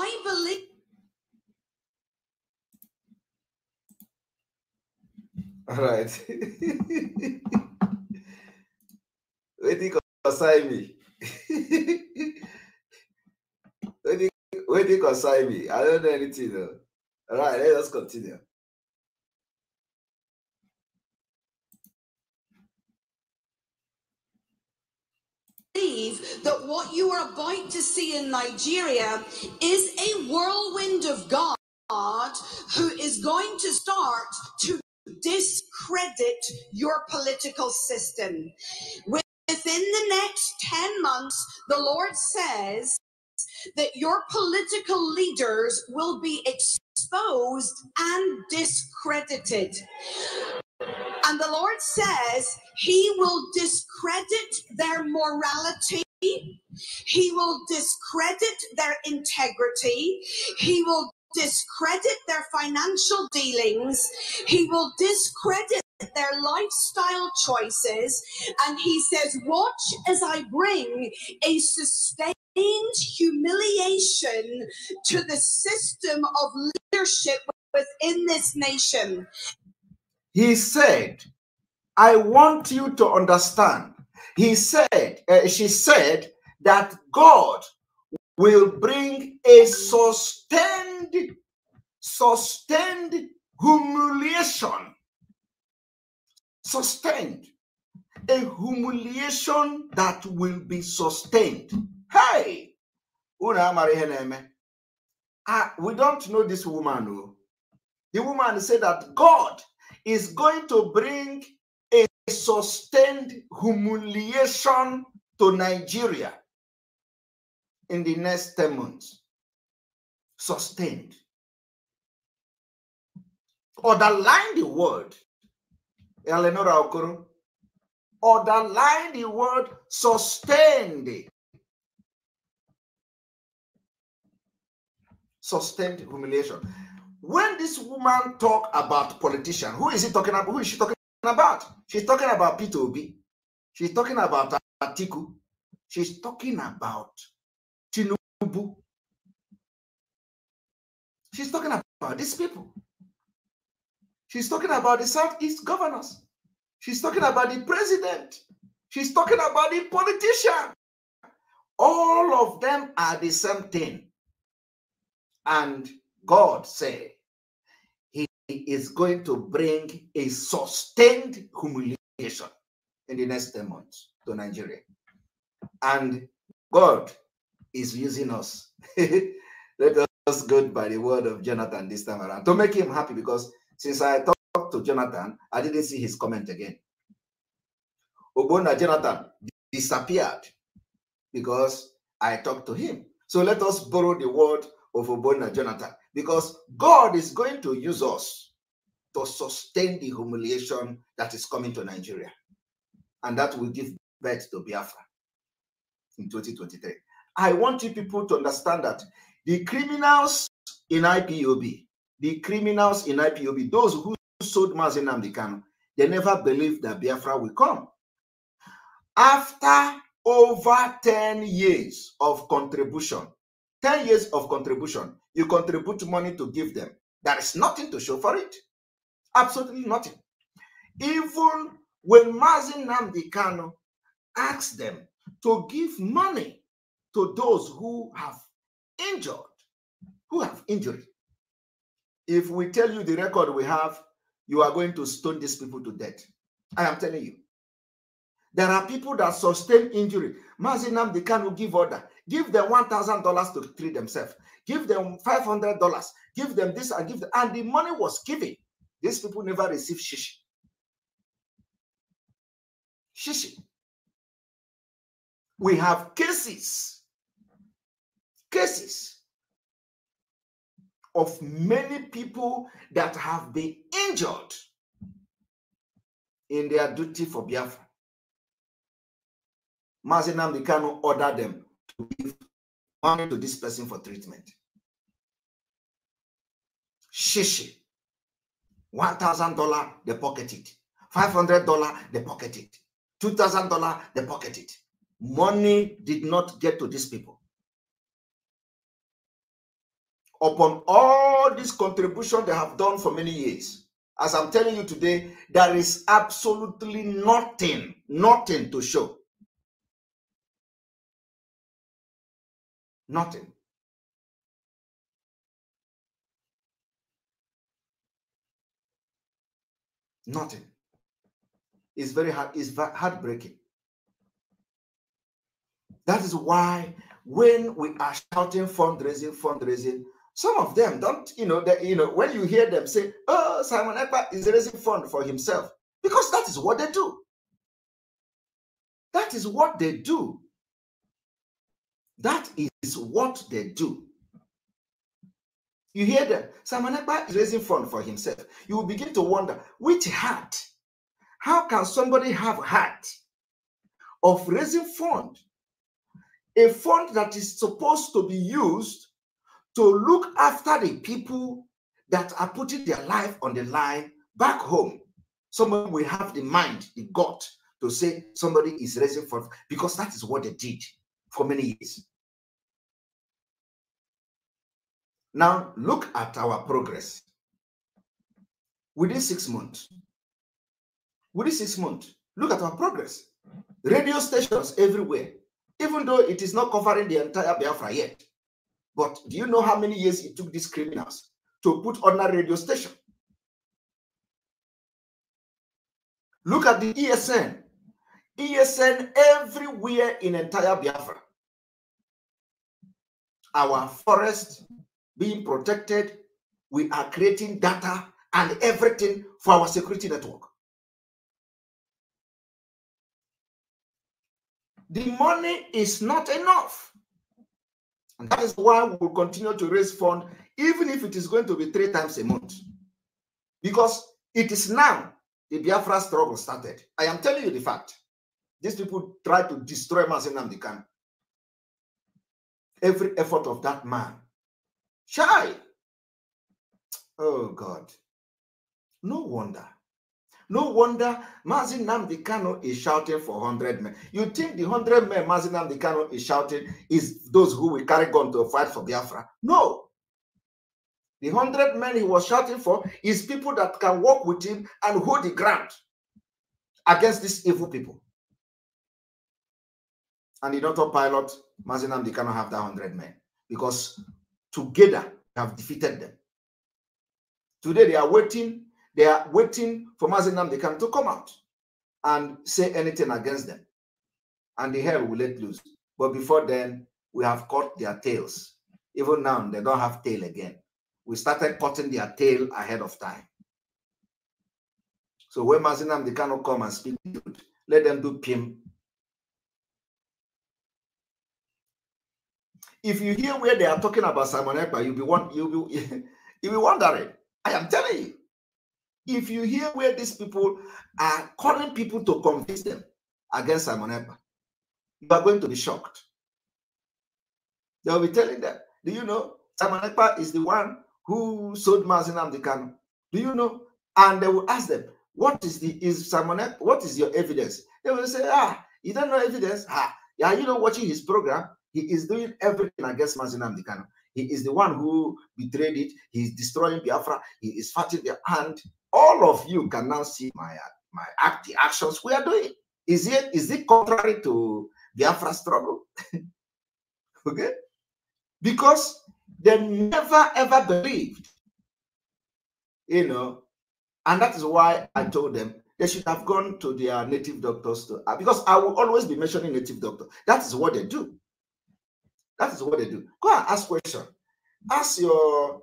I believe. All right. [laughs] Wetin concern me? [laughs] Wetin concern me? I don't know anything. Though. All right, let us continue. believe that what you are about to see in Nigeria is a whirlwind of God who is going to start to discredit your political system. Within the next 10 months, the Lord says that your political leaders will be exposed and discredited. And the Lord says he will discredit their morality. He will discredit their integrity. He will discredit their financial dealings. He will discredit their lifestyle choices. And he says, Watch as I bring a sustained humiliation to the system of leadership within this nation. He said, I want you to understand. He said, uh, she said that God will bring a sustained, sustained humiliation. Sustained. A humiliation that will be sustained. Hey! Uh, we don't know this woman. Though. The woman said that God is going to bring a sustained humiliation to Nigeria in the next 10 months. Sustained. Underline the word, Eleanor Okoro. Underline the word sustained. Sustained humiliation when this woman talk about politician, who is he talking about? Who is she talking about? She's talking about Peter Obi. She's talking about Atiku. She's talking about Tinubu. She's talking about these people. She's talking about the Southeast governors. She's talking about the president. She's talking about the politician. All of them are the same thing. And God said, is going to bring a sustained humiliation in the next 10 months to Nigeria. And God is using us. [laughs] Let us go by the word of Jonathan this time around to make him happy because since I talked to Jonathan, I didn't see his comment again. Obona Jonathan disappeared because I talked to him. So let us borrow the word of Obona Jonathan because God is going to use us to sustain the humiliation that is coming to Nigeria. And that will give birth to Biafra in 2023. I want you people to understand that the criminals in IPOB, the criminals in IPOB, those who sold Mazin Amdekano, they never believed that Biafra will come. After over 10 years of contribution, 10 years of contribution, you contribute money to give them. There is nothing to show for it. Absolutely nothing. Even when Mazin Namdi asks asked them to give money to those who have injured, who have injury. If we tell you the record we have, you are going to stone these people to death. I am telling you. There are people that sustain injury. Mazin Namdi give order. Give them $1,000 to treat themselves. Give them $500. Give them this and give them. And the money was given. These people never received shish. Shishi. We have cases, cases of many people that have been injured in their duty for Biafra. Mazinam Dikano ordered them give money to this person for treatment. Shishi. $1,000, they pocket it. $500, they pocket it. $2,000, they pocket it. Money did not get to these people. Upon all this contribution they have done for many years, as I'm telling you today, there is absolutely nothing, nothing to show Nothing. Nothing. It's very hard, it's heartbreaking. That is why when we are shouting fundraising, fundraising, some of them don't, you know, that you know, when you hear them say, Oh, Simon Epa is raising fund for himself, because that is what they do. That is what they do. That is what they do. You hear them. Simon is raising fund for himself. You will begin to wonder which heart? How can somebody have heart of raising fund? A fund that is supposed to be used to look after the people that are putting their life on the line back home. Someone will have the mind, the gut to say somebody is raising fund because that is what they did for many years. Now, look at our progress. Within six months, within six months, look at our progress. Radio stations everywhere, even though it is not covering the entire Biafra yet. But do you know how many years it took these criminals to put on a radio station? Look at the ESN ESN everywhere in entire Biafra. Our forest being protected. We are creating data and everything for our security network. The money is not enough. And that is why we will continue to raise funds, even if it is going to be three times a month. Because it is now the Biafra struggle started. I am telling you the fact. These people try to destroy Mazen Namdekan. Every effort of that man. Shy. Oh God. No wonder. No wonder Mazin Namdekano is shouting for 100 men. You think the 100 men Mazin Namdekano is shouting is those who will carry gun to fight for Biafra? No. The 100 men he was shouting for is people that can work with him and hold the ground against these evil people and the Dr. Pilot, Mazinam, they cannot have that 100 men because together they have defeated them. Today they are waiting, they are waiting for Mazinam, they can to come out and say anything against them. And the hell will let loose. But before then, we have caught their tails. Even now, they don't have tail again. We started cutting their tail ahead of time. So when Mazinam, they cannot come and speak, let them do PIM If you hear where they are talking about Simon Ekpa, you'll be one, you'll be [laughs] you'll be wondering. I am telling you. If you hear where these people are calling people to convince them against Simon Ekpa, you are going to be shocked. They'll be telling them, do you know Simon Ekpa is the one who sold Mazin Amdekano? Do you know? And they will ask them, what is the is Simon Ekpa, what is your evidence? They will say, ah, you don't know evidence. Ah, are you not watching his program? He is doing everything against Mazinam Dikano. He is the one who betrayed it. He is destroying Biafra. He is fighting the hand. All of you can now see my my act, the actions we are doing. Is it is it contrary to Biafra struggle? [laughs] okay? Because they never ever believed, you know, and that is why I told them they should have gone to their native doctors to, because I will always be mentioning native doctor. That is what they do. That is what they do. Go and ask question. Ask your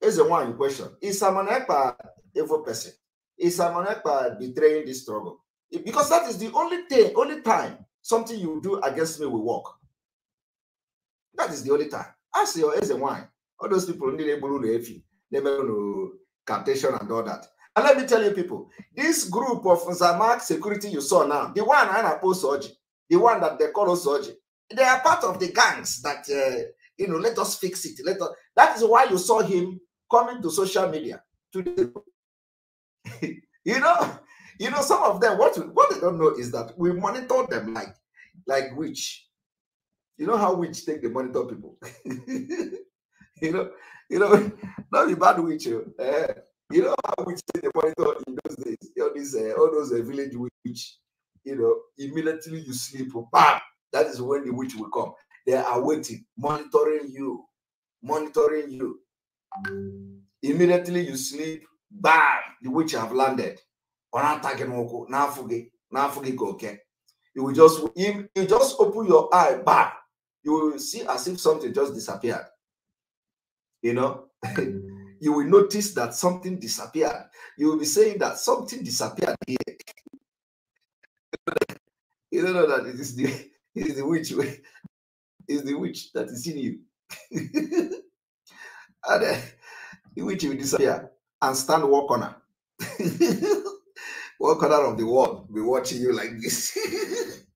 is the one question. Is Simon Ekpa evil person? Is someone Ekpa betraying this struggle? Because that is the only thing, only time something you do against me will work. That is the only time. Ask your is the one. All those people need a blue refi. They know captation and all that. And let me tell you, people, this group of Zamak security you saw now, the one I oppose Soji, the one that they call Soji, they are part of the gangs that, uh, you know, let us fix it. Let us, that is why you saw him coming to social media today. [laughs] you know, you know, some of them, what, what they don't know is that we monitor them like, like witch. You know how witch take the monitor people. [laughs] you know, you know, not the bad witch. Uh, you know how witch take the monitor in those days. All these uh, all those uh, village witch. You know, immediately you sleep, oh, bam, that is when the witch will come. They are waiting, monitoring you, monitoring you. Immediately you sleep, bam, the witch have landed. You will just you, you just open your eye, bam, you will see as if something just disappeared. You know, [laughs] you will notice that something disappeared. You will be saying that something disappeared here. [laughs] you don't know that it is the is the witch. Is the witch that is in you. [laughs] and uh, the witch will disappear and stand one corner. [laughs] one corner of the world be watching you like this. [laughs]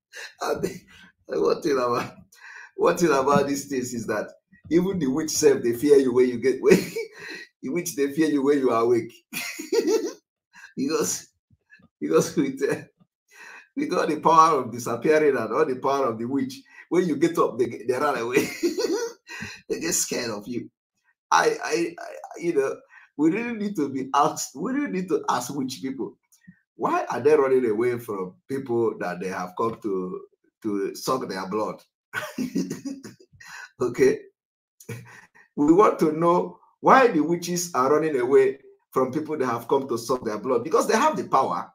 and the, one thing about one thing about these things is that even the witch self they fear you when you get when in which they fear you when you are awake. because because with uh, we got the power of disappearing and all the power of the witch. When you get up, they, they run away. [laughs] they get scared of you. I, I, I, you know, we really need to be asked. We really need to ask witch people why are they running away from people that they have come to to suck their blood? [laughs] okay, we want to know why the witches are running away from people that have come to suck their blood because they have the power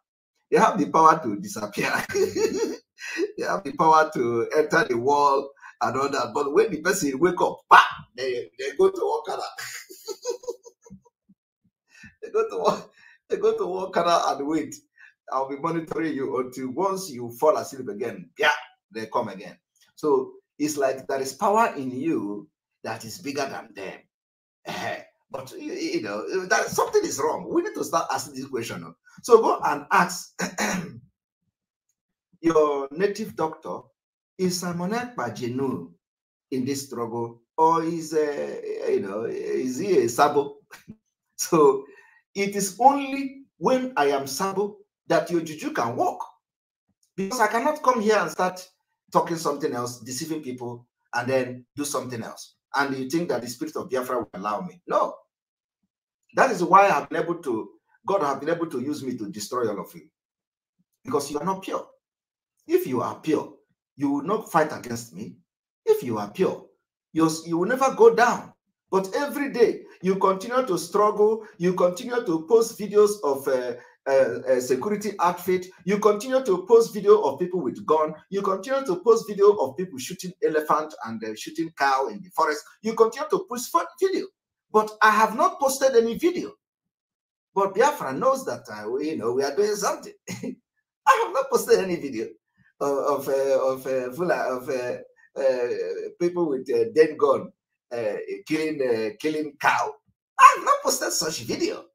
they have the power to disappear. [laughs] they have the power to enter the wall and all that. But when the person wake up, bah, they, they go to Wakana. [laughs] they go to they go to Wakana and wait. I'll be monitoring you until once you fall asleep again. Yeah, they come again. So it's like there is power in you that is bigger than them. Uh, but you, you, know uh, that something is wrong. We need to start asking this question. Oh. So go and ask [clears throat] your native doctor: Is Simonette Pagino in this struggle, or is a uh, you know is he a sabo? [laughs] so it is only when I am sabo that your juju can work, because I cannot come here and start talking something else, deceiving people, and then do something else. And you think that the spirit of Biafra will allow me? No, that is why I've been able to, God has been able to use me to destroy all of you. Because you are not pure. If you are pure, you will not fight against me. If you are pure, you, you will never go down. But every day, you continue to struggle. You continue to post videos of a, uh, uh, uh, security outfit. You continue to post video of people with gun. You continue to post video of people shooting elephant and uh, shooting cow in the forest. You continue to post video. But I have not posted any video. But Biafra knows that I, uh, you know we are doing something. [laughs] I have not posted any video of of uh, of, uh, of uh, uh, people with a uh, dead gun killing killing cow. I have not posted such video.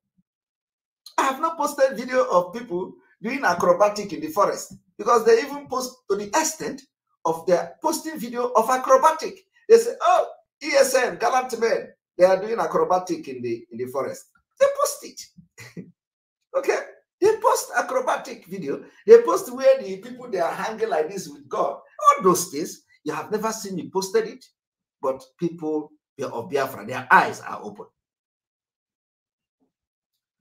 I have not posted video of people doing acrobatic in the forest because they even post to the extent of their posting video of acrobatic. They say, "Oh, ESN, gallant men, they are doing acrobatic in the in the forest. They post it. [laughs] okay? They post acrobatic video. They post where the people they are hanging like this with God. All those things. You have never seen me posted it, but people of Biafra, their eyes are open.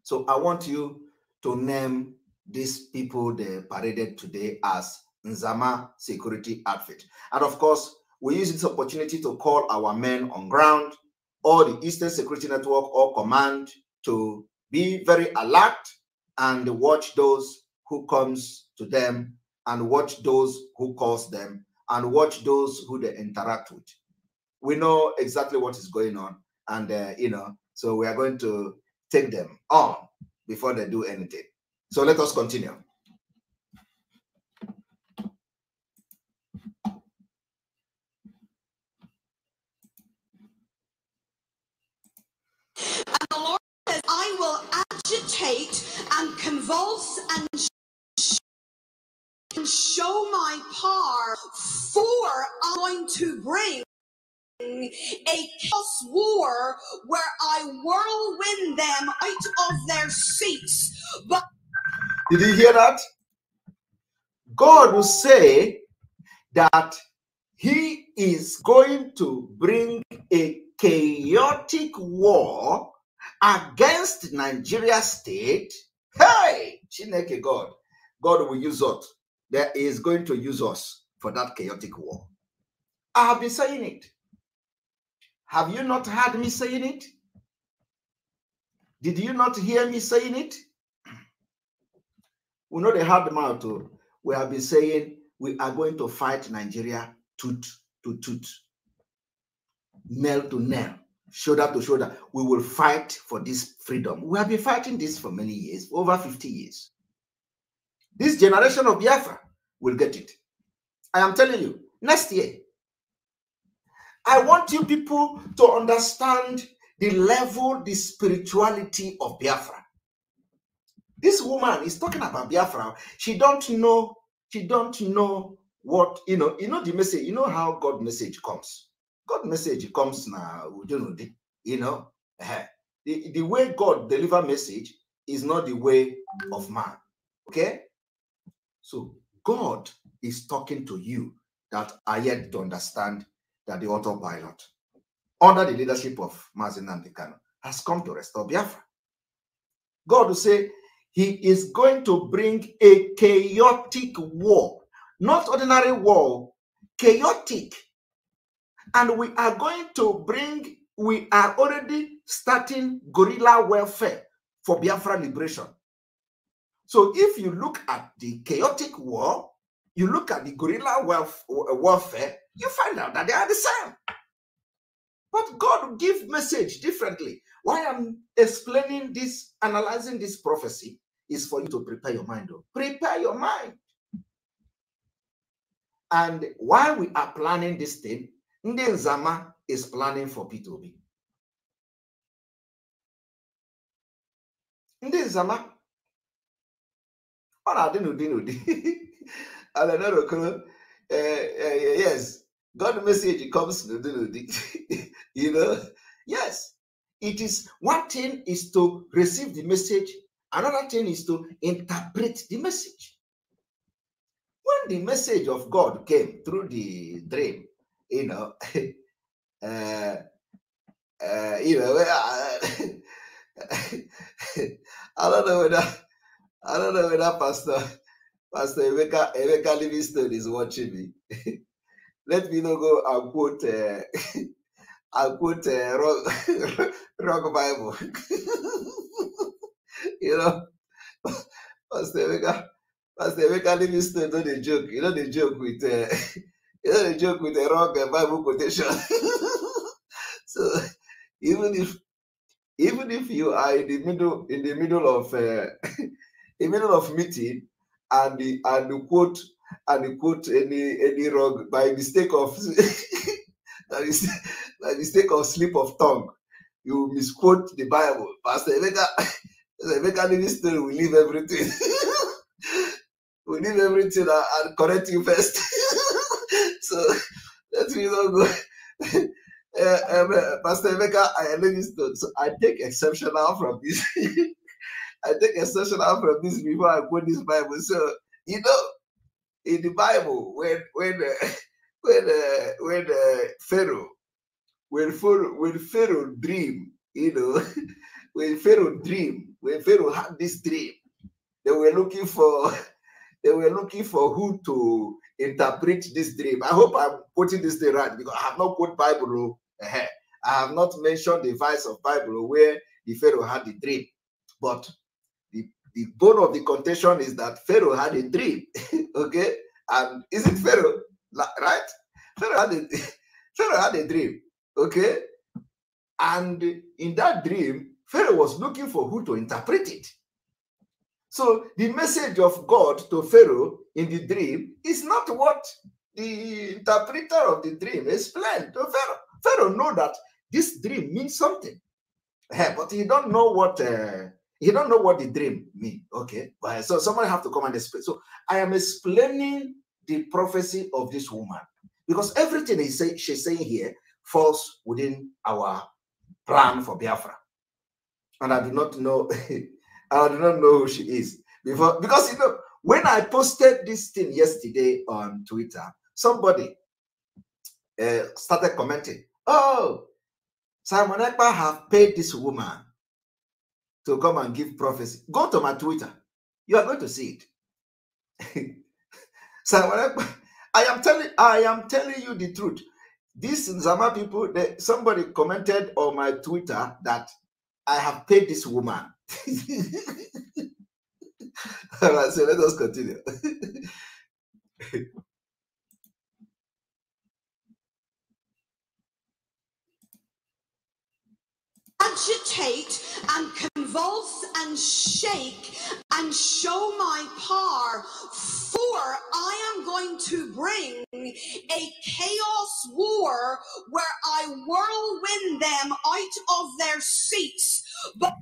So I want you to name these people they paraded today as Nzama security outfit. And of course, we use this opportunity to call our men on ground or the Eastern Security Network or command to be very alert and watch those who comes to them and watch those who calls them and watch those who they interact with. We know exactly what is going on and, uh, you know, so we are going to take them on before they do anything. So let us continue. I will agitate and convulse and and show my power, for I'm going to bring a chaos war where I whirlwind them out of their seats. But did you hear that? God will say that He is going to bring a chaotic war against Nigeria state, hey, Chineke God, God will use us. There is going to use us for that chaotic war. I have been saying it. Have you not heard me saying it? Did you not hear me saying it? We know the hard mouth. Oh. We have been saying we are going to fight Nigeria tooth to tooth, nail to nail shoulder to shoulder, we will fight for this freedom. We have been fighting this for many years, over 50 years. This generation of Biafra will get it. I am telling you, next year. I want you people to understand the level, the spirituality of Biafra. This woman is talking about Biafra. She don't know, she don't know what, you know, you know the message, you know how God message comes God message comes now, you know. Eh, the, the way God deliver message is not the way of man. Okay? So God is talking to you that are yet to understand that the autopilot, under the leadership of Mazin Nandekano, has come to restore Biafra. God will say he is going to bring a chaotic war, not ordinary war, chaotic and we are going to bring, we are already starting guerrilla welfare for Biafra liberation. So if you look at the chaotic war, you look at the guerrilla welfare. warfare, you find out that they are the same. But God give message differently. Why I'm explaining this, analyzing this prophecy, is for you to prepare your mind. Though. Prepare your mind. And while we are planning this thing, Ndị Nzama is planning for P2B. Ndị Nzama ọ na-adị n'ụdị n'ụdị Alenor [laughs] Okoro yes God message comes n'ụdị n'ụdị [laughs] you know yes it is one thing is to receive the message another thing is to interpret the message when the message of God came through the dream you know, [laughs] uh, uh, you know, I, [laughs] I don't know whether I don't know whether Pastor Pastor Emeka Emeka Livingstone is watching me. [laughs] Let me not go and quote uh, I'll quote uh, rock, rock Bible. you know, Pastor Emeka Pastor Emeka Livingstone not the joke. You know the joke with. Uh, you know, not joke with a wrong Bible quotation. [laughs] so even if even if you are in the middle in the middle of uh, [laughs] the middle of meeting and the and the quote and the quote any any wrong by mistake of that is mistake, by mistake of slip of tongue, you misquote the Bible. Pastor Emeka, [laughs] Emeka minister will leave everything. we leave everything and, and correct you first. So [laughs] let me not go. Uh, um, uh, Pastor Emeka, I Livingstone. So I take exception out from this. [laughs] I take exception out from this before I quote this Bible. So you know, in the Bible, when when uh, [laughs] when uh, when uh, Pharaoh when Pharaoh when Pharaoh dream, you know, when Pharaoh dream, when Pharaoh had this dream, they were looking for they were looking for who to interpret this dream. I hope I'm quoting this thing right because I have not quoted Bible. Oh, I have not mentioned the verse of Bible oh, where the Pharaoh had the dream. But the, the bone of the contention is that Pharaoh had a dream. [laughs] okay? And is it Pharaoh? Right? Pharaoh had a, [laughs] Pharaoh had a dream. Okay? And in that dream, Pharaoh was looking for who to interpret it. So the message of God to Pharaoh in the dream is not what the interpreter of the dream explained to Pharaoh. Pharaoh know that this dream means something, eh, but he don't know what uh, he don't know what the dream mean. Okay, so somebody have to come and explain. So I am explaining the prophecy of this woman because everything he say, she's saying here falls within our plan for Biafra, and I do not know [laughs] I do not know who she is before because you know when I posted this thing yesterday on Twitter, somebody uh, started commenting, "Oh, Simon Ekpa have paid this woman to come and give prophecy." Go to my Twitter; you are going to see it. [laughs] Simon Ekpa, I am telling, I am telling you the truth. These Zama people, they, somebody commented on my Twitter that I have paid this woman all right, so let us continue. Agitate and convulse and shake and show my power, for I am going to bring a chaos war where I whirlwind them out of their seats. But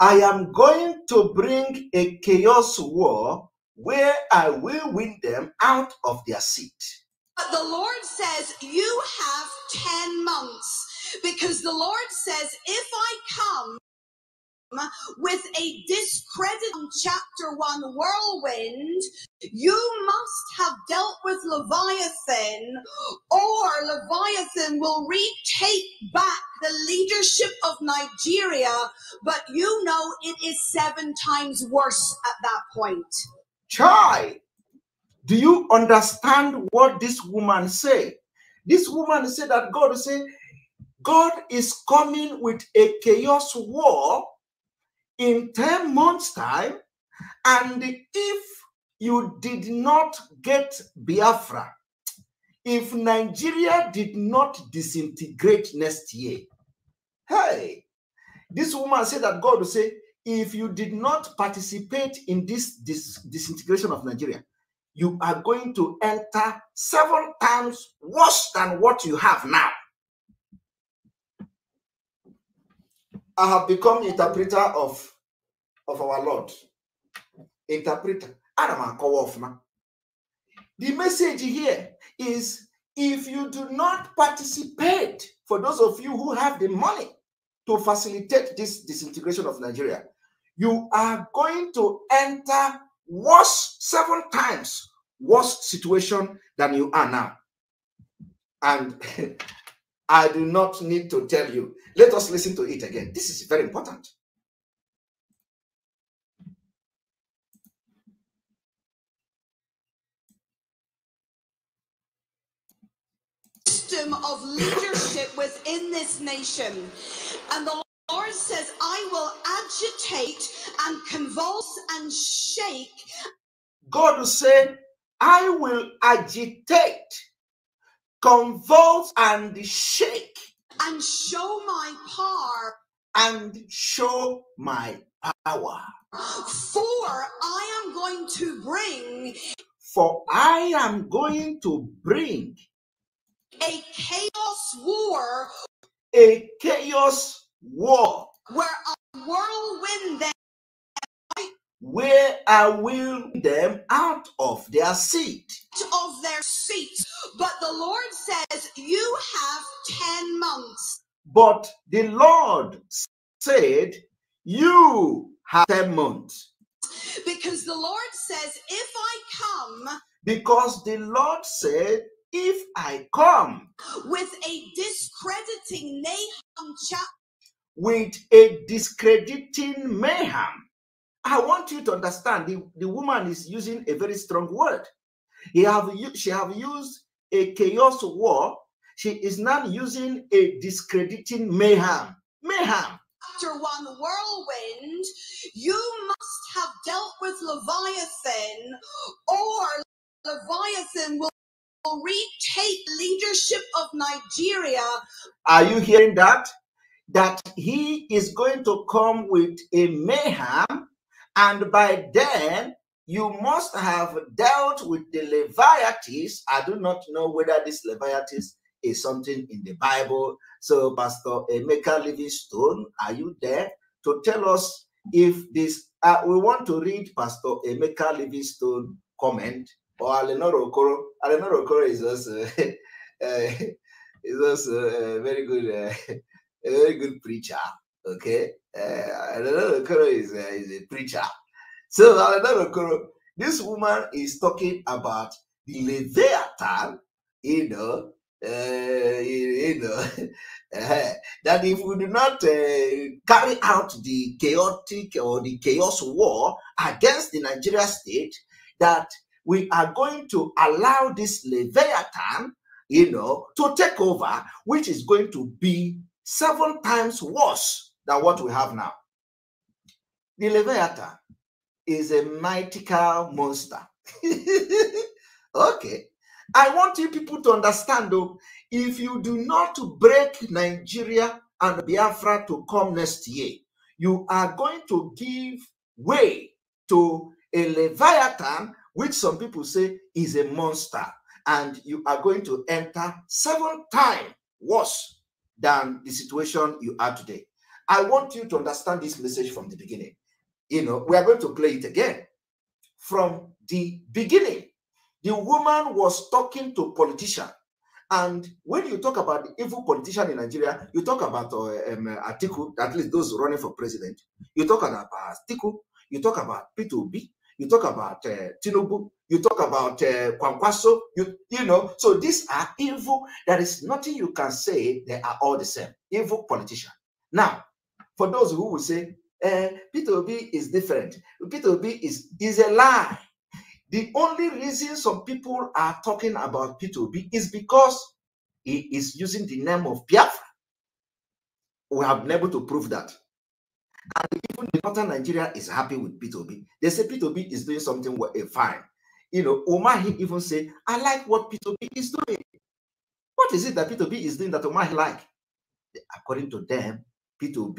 I am going to bring a chaos war where I will win them out of their seat. But the Lord says, You have 10 months because the Lord says, If I come, with a discredit on chapter one whirlwind, you must have dealt with Leviathan, or Leviathan will retake back the leadership of Nigeria. But you know it is seven times worse at that point. Chai, do you understand what this woman said? This woman said that God say, God is coming with a chaos war in 10 months' time, and if you did not get Biafra, if Nigeria did not disintegrate next year, hey, this woman said that God will say, if you did not participate in this, this disintegration of Nigeria, you are going to enter several times worse than what you have now. I have become interpreter of, of our Lord. Interpreter. Adam Akowofna. The message here is if you do not participate, for those of you who have the money to facilitate this disintegration of Nigeria, you are going to enter worse seven times worse situation than you are now. And [laughs] I do not need to tell you. Let us listen to it again. This is very important. System of leadership within this nation. And the Lord says, I will agitate and convulse and shake. God will say, I will agitate convulse and shake and show my power and show my power for i am going to bring for i am going to bring a chaos war a chaos war where a whirlwind where I will them out of their seat. Of their seat. But the Lord says, You have 10 months. But the Lord said, You have 10 months. Because the Lord says, If I come. Because the Lord said, If I come. With a discrediting Nahum chapter. With a discrediting Mayhem I want you to understand the, the woman is using a very strong word. He have, she have used a chaos war. She is not using a discrediting mayhem. Mayhem. After one whirlwind, you must have dealt with Leviathan, or Leviathan will retake leadership of Nigeria. Are you hearing that? That he is going to come with a mayhem and by then, you must have dealt with the Leviathes. I do not know whether this Leviathes is something in the Bible. So, Pastor Emeka Livingstone, are you there to tell us if this? Uh, we want to read Pastor Emeka Livingstone comment or Alenoro Okoro. Okoro is also [laughs] uh, is also a very good uh, a very good preacher. Okay, uh, Okoro is, uh, is a preacher. So Alenor Okoro, this woman is talking about the Leviathan, you know, uh, you know, [laughs] that if we do not uh, carry out the chaotic or the chaos war against the Nigeria state, that we are going to allow this Leviathan, you know, to take over, which is going to be seven times worse than what we have now. The Leviathan is a mythical monster. [laughs] okay. I want you people to understand though, if you do not break Nigeria and Biafra to come next year, you are going to give way to a Leviathan, which some people say is a monster, and you are going to enter seven times worse than the situation you are today. I want you to understand this message from the beginning. You know, we are going to play it again from the beginning. The woman was talking to politician, and when you talk about the evil politician in Nigeria, you talk about uh, um, Atiku, at least those running for president. You talk about Atiku. You talk about P2B. You talk about uh, Tinubu. You talk about uh, Kwankwaso. You you know. So these are evil. There is nothing you can say. They are all the same. Evil politician. Now for those who will say, eh, P2B is different, P2B is, is a lie. The only reason some people are talking about P2B is because he is using the name of Biafra. We have been able to prove that. And even the northern Nigeria is happy with P2B. They say P2B is doing something eh, fine. You know, Omahi even said, I like what P2B is doing. What is it that P2B is doing that Omahi like? According to them, P2B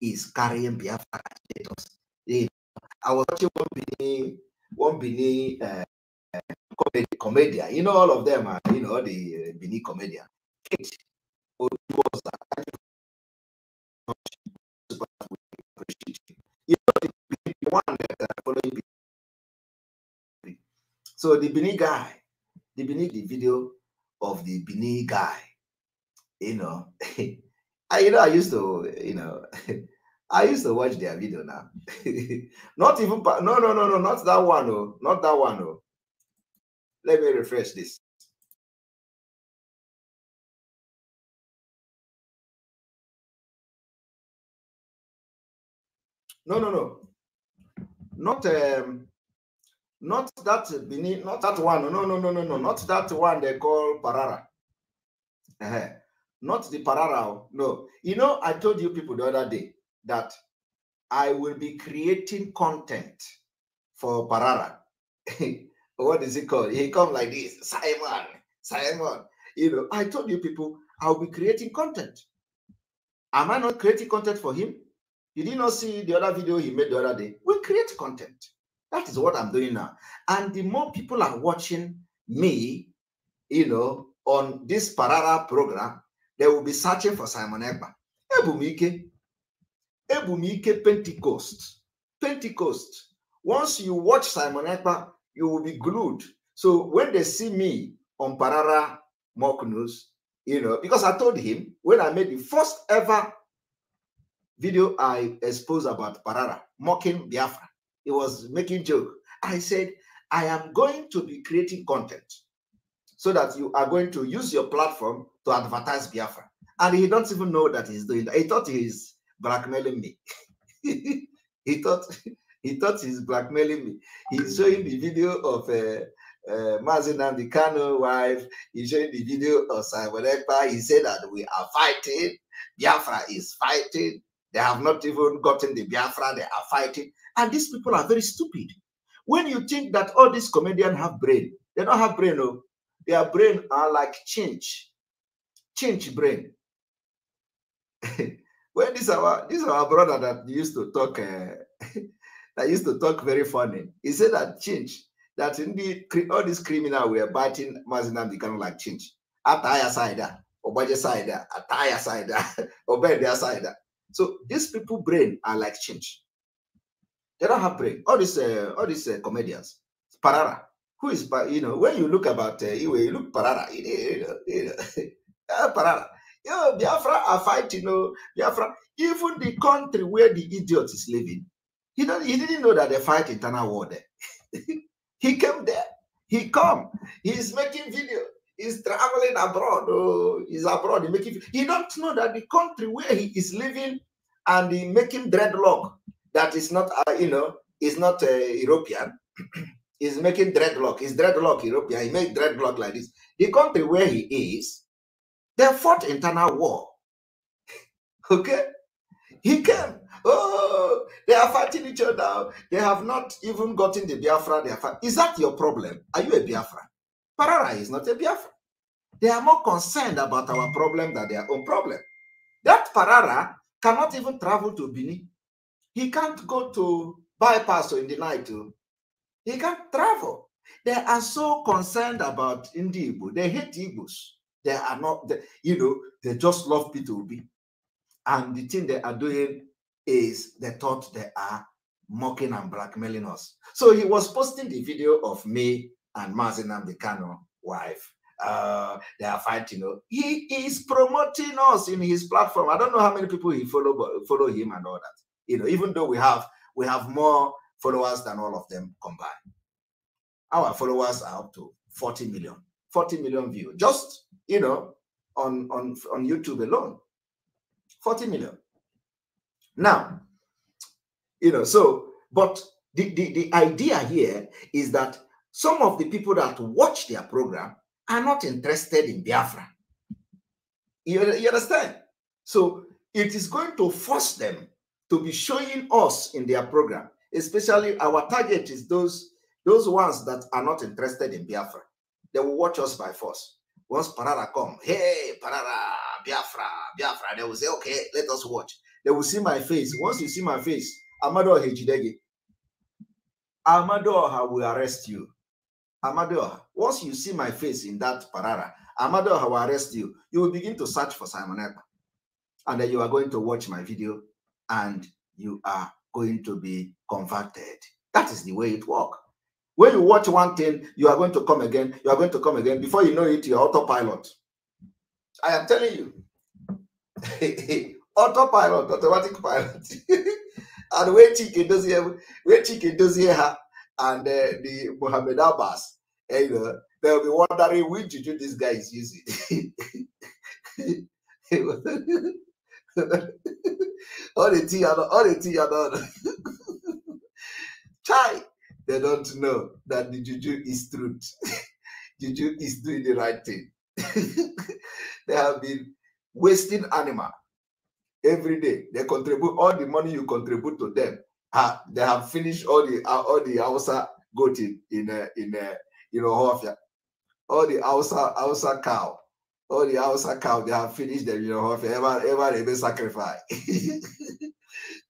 is carrying Biafra status. They, I was watching one Bini, one Bini uh, comedy, comedian. You know, all of them are, ah, you know, the uh, Bini comedian. Kate was You know, the, one that following Bini. So the Bini guy, the Bini, the video of the Bini guy, you know. [laughs] I, you know, I used to, you know, [laughs] I used to watch their video now. [laughs] not even, no, no, no, no, not that one, oh, not that one, oh. Let me refresh this. No, no, no, not um, not that Benin, not that one. Oh, no, no, no, no, no, not that one they call Parara. Uh -huh not the parara. Oh. No, you know, I told you people the other day that I will be creating content for parara. [laughs] what is it called? He come like this, Simon, Simon. You know, I told you people I'll be creating content. Am I not creating content for him? You did not see the other video he made the other day. We create content. That is what I'm doing now. And the more people are watching me, you know, on this Parara program, they will be searching for Simon Ekpa. Ebumike, Ebumike Pentecost. Pentecost. Once you watch Simon Ekpa, you will be glued. So when they see me on Parara Mock News, you know, because I told him when I made the first ever video I exposed about Parara, mocking Biafra, he was making joke. I said, I am going to be creating content so that you are going to use your platform to advertise Biafra. And he doesn't even know that he's doing that. He thought he's blackmailing me. [laughs] he thought he thought he's blackmailing me. He's showing the video of uh, uh, Mazin and the Kano wife. He's showing the video of Simon Ekpa. He said that we are fighting. Biafra is fighting. They have not even gotten the Biafra. They are fighting. And these people are very stupid. When you think that all these comedians have brain, they don't have brain. No. Oh. Their brain are like change, change brain. [laughs] when this our this our brother that used to talk uh, [laughs] that used to talk very funny, he said that change that in the all these we were biting Mazinam kind of like chinch. Ataya side, ah, Obaje side, ah, Ataya side, ah, [laughs] Obedia side. So these people brain are like change. They don't have brain. All these uh, all these uh, comedians, Parara, who is, you know, when you look about, uh, you look Parara, you know, you know, Parara. [laughs] You know, Biafra are fighting, you know, Biafra, even the country where the idiot is living, he, don't, he didn't know that they fight internal war there. [laughs] he came there. He come. He's making video. He's traveling abroad. Oh, he's abroad. He making. He don't know that the country where he is living and he making dreadlock that is not, uh, you know, is not uh, European. [clears throat] is making dreadlock. He's dreadlock European. He made dreadlock like this. The country where he is, they fought internal war. [laughs] okay? He came. Oh, they are fighting each other. They have not even gotten the Biafra. They are Is that your problem? Are you a Biafra? Parara is not a Biafra. They are more concerned about our problem than their own problem. That Parara cannot even travel to Benin. He can't go to bypass in the night to oh. He can't travel. They are so concerned about indigo. They hate Igbos. They are not, they, you know, they just love P2B. And the thing they are doing is they thought they are mocking and blackmailing us. So he was posting the video of me and Mazinam, the Canon wife. Uh, they are fighting. He is promoting us in his platform. I don't know how many people he follow, but follow him and all that. You know, even though we have we have more followers than all of them combined. Our followers are up to 40 million, 40 million views, just, you know, on, on, on YouTube alone. 40 million. Now, you know, so, but the, the, the idea here is that some of the people that watch their program are not interested in Biafra. You, you understand? So it is going to force them to be showing us in their program especially our target is those those ones that are not interested in Biafra. They will watch us by force. Once Parara come, hey, Parara, Biafra, Biafra, they will say, okay, let us watch. They will see my face. Once you see my face, Amado Hejidege, Amadoha will arrest you. Amadoha, once you see my face in that Parara, Amadoha will arrest you. You will begin to search for Simon Ekpa. And then you are going to watch my video and you are going to be converted. That is the way it works. When you watch one thing, you are going to come again, you are going to come again. Before you know it, you're autopilot. I am telling you. [laughs] autopilot, automatic pilot. [laughs] and when chicken does here, when chicken does here, and uh, the Mohammed Abbas, eh, you know, they'll be wondering which do this guy is using. [laughs] Only [laughs] tea, only tea, [laughs] Chai, they don't know that the juju is truth. [laughs] juju is doing the right thing. they have been wasting animal every day. They contribute all the money you contribute to them. Uh, they have finished all the uh, all the Hausa goat in in uh, in uh, in Ohofia. all the Hausa Hausa cow all oh, the house account, they have finished them, you know, ever, ever they may sacrifice. [laughs]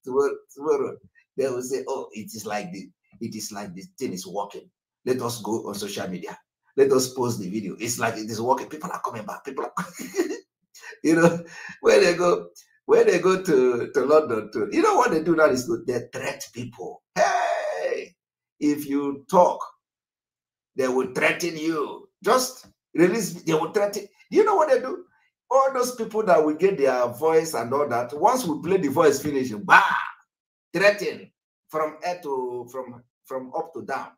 tomorrow, tomorrow, they will say, oh, it is like this. It is like this thing is working. Let us go on social media. Let us post the video. It's like it is working. People are coming back. People are, [laughs] you know, when they go, when they go to, to London, to, you know what they do now is good. they threat people. Hey, if you talk, they will threaten you. Just release, they will threaten. You know what they do? All those people that will get their voice and all that, once we play the voice finishing, bah, threaten from air to from from up to down.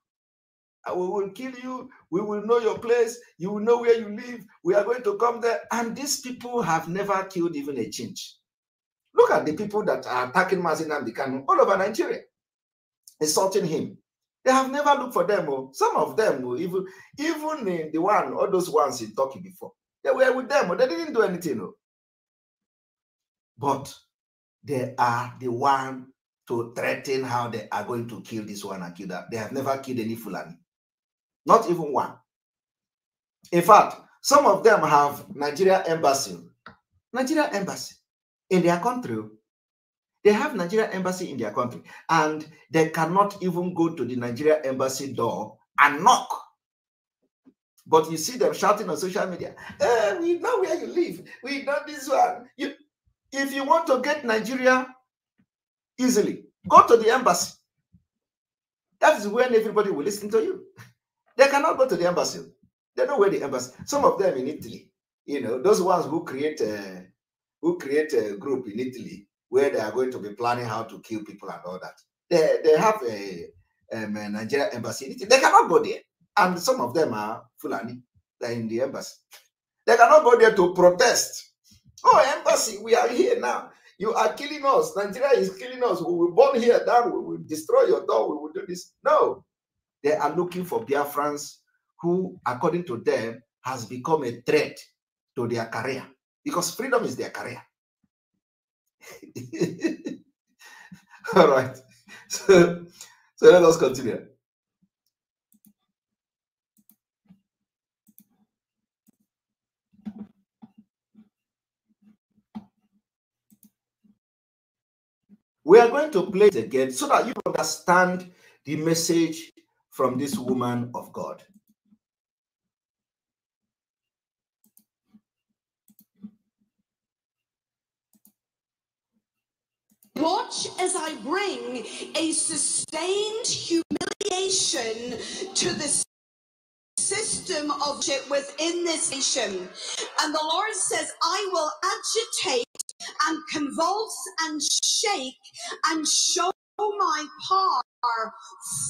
we will kill you. We will know your place. You will know where you live. We are going to come there. And these people have never killed even a change. Look at the people that are attacking the cannon all over Nigeria, insulting him. They have never looked for them. Oh. some of them, oh, even even in the one, all those ones in Turkey before, they were with them, but oh. they didn't do anything. But they are the one to threaten how they are going to kill this one and kill that. They have never killed any Fulani, not even one. In fact, some of them have Nigeria embassy, Nigeria embassy in their country they have Nigeria embassy in their country, and they cannot even go to the Nigeria embassy door and knock. But you see them shouting on social media, eh, we know where you live. We know this one. You, if you want to get Nigeria easily, go to the embassy. That is when everybody will listen to you. They cannot go to the embassy. They know where the embassy. Some of them in Italy, you know, those ones who create a, uh, who create a group in Italy where they are going to be planning how to kill people and all that. They, they have a, um, a Nigerian embassy. They cannot go there. And some of them are Fulani. They're in the embassy. They cannot go there to protest. Oh, embassy, we are here now. You are killing us. Nigeria is killing us. We will burn here down. We will destroy your door. We will do this. No. They are looking for Biafrans who, according to them, has become a threat to their career because freedom is their career. [laughs] All right. So, so let us continue. We are going to play it again so that you understand the message from this woman of God. watch as I bring a sustained humiliation to the system of it within this nation. And the Lord says, I will agitate and convulse and shake and show my power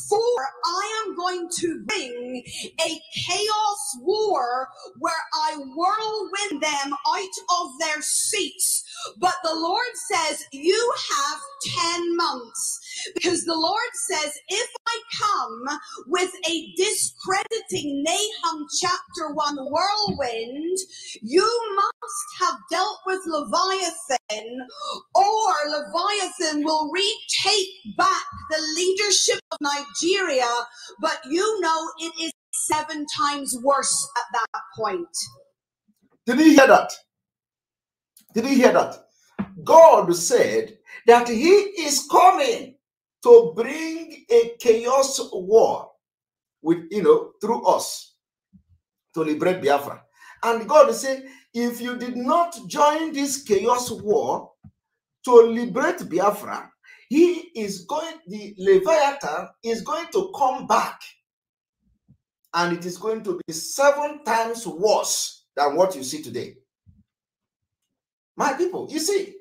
for I am going to bring a chaos war where I whirlwind them out of their seats. But the Lord says, You have 10 months. Because the Lord says, If I come with a discrediting Nahum chapter 1 whirlwind, you must have dealt with Leviathan, or Leviathan will retake back the leadership leadership of Nigeria, but you know it is seven times worse at that point. Did you hear that? Did you hear that? God said that He is coming to bring a chaos war with you know through us to liberate Biafra. And God said, if you did not join this chaos war to liberate Biafra, he is going, the Leviathan is going to come back and it is going to be seven times worse than what you see today. My people, you see,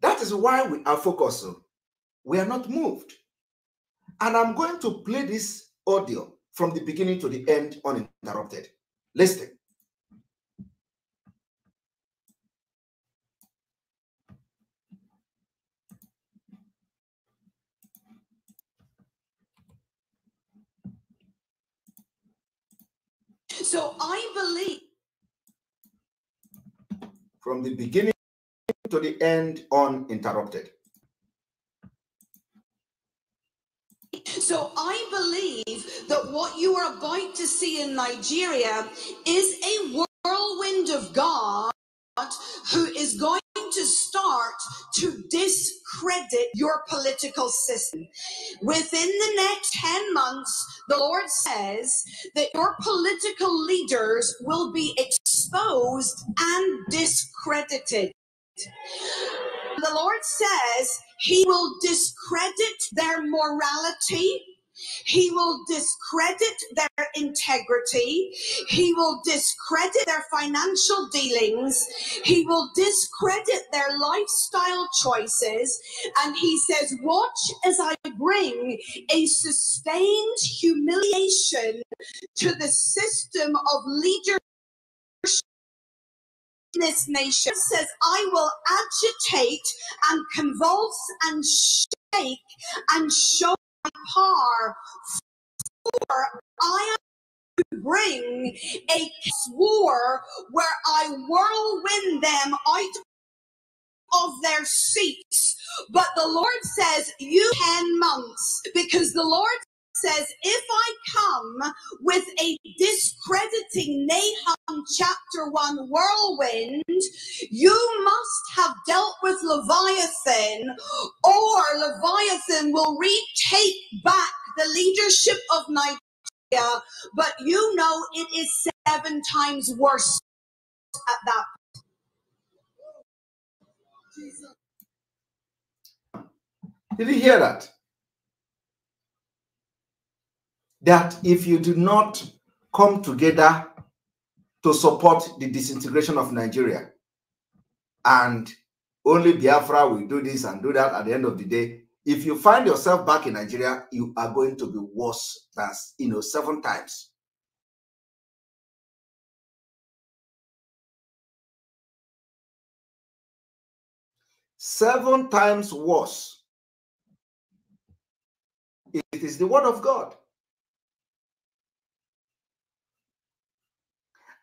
that is why we are focused. We are not moved. And I'm going to play this audio from the beginning to the end uninterrupted. Listen. So I believe from the beginning to the end uninterrupted. So I believe that what you are about to see in Nigeria is a whirlwind of God who is going to start to discredit your political system. Within the next 10 months, the Lord says that your political leaders will be exposed and discredited. The Lord says he will discredit their morality, he will discredit their integrity. He will discredit their financial dealings. He will discredit their lifestyle choices. And he says, Watch as I bring a sustained humiliation to the system of leadership this nation says, I will agitate and convulse and shake and show par for I am bring a war where I whirlwind them out of their seats. But the Lord says, You 10 months, because the Lord says, If I come with a discrediting Nahum chapter 1 whirlwind, you must have dealt with Leviathan, or Leviathan will retake back the leadership of Nigeria. But you know, it is seven times worse at that point. Did you hear that? that if you do not come together to support the disintegration of Nigeria and only Biafra will do this and do that at the end of the day, if you find yourself back in Nigeria, you are going to be worse than, you know, seven times. Seven times worse. It is the word of God.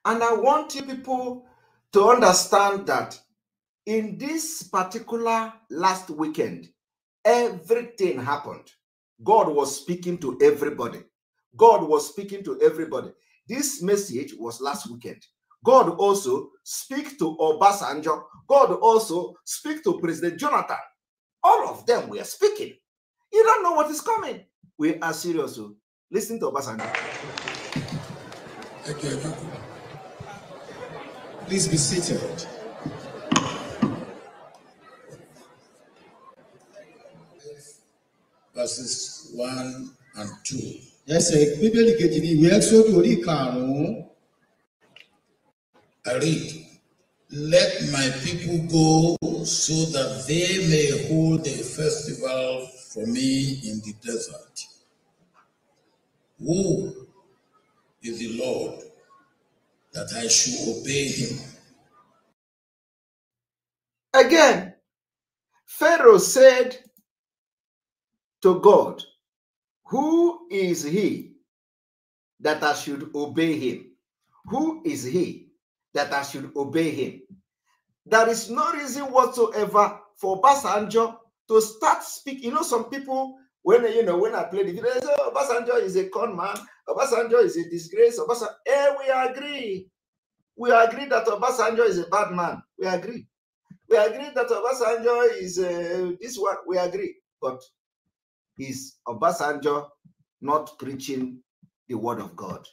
And I want you people to understand that in this particular last weekend, everything happened. God was speaking to everybody. God was speaking to everybody. This message was last weekend. God also speak to Obasanjo. God also speak to President Jonathan. All of them were speaking. You don't know what is coming. We are serious. Oh. Listen to Obasanjo. Thank you. Please be seated. Verses 1 and 2. Yes, Bíbélì kejì ni We esodu Ẹ́sọ́dù orí karùn-ún. I read, Let my people go so that they may hold a festival for me in the desert. Who is the Lord that I should obey him. Again, Pharaoh said to God, Who is he that I should obey him? Who is he that I should obey him? There is no reason whatsoever for Basanjo to start speaking. You know, some people when you know when I play the video, say, oh, Obasanjo is a con man. Obasanjo is a disgrace. Obasanjo, eh, we agree. We agree that Obasanjo is a bad man. We agree. We agree that Obasanjo is uh, this one. We agree. But is Obasanjo not preaching the word of God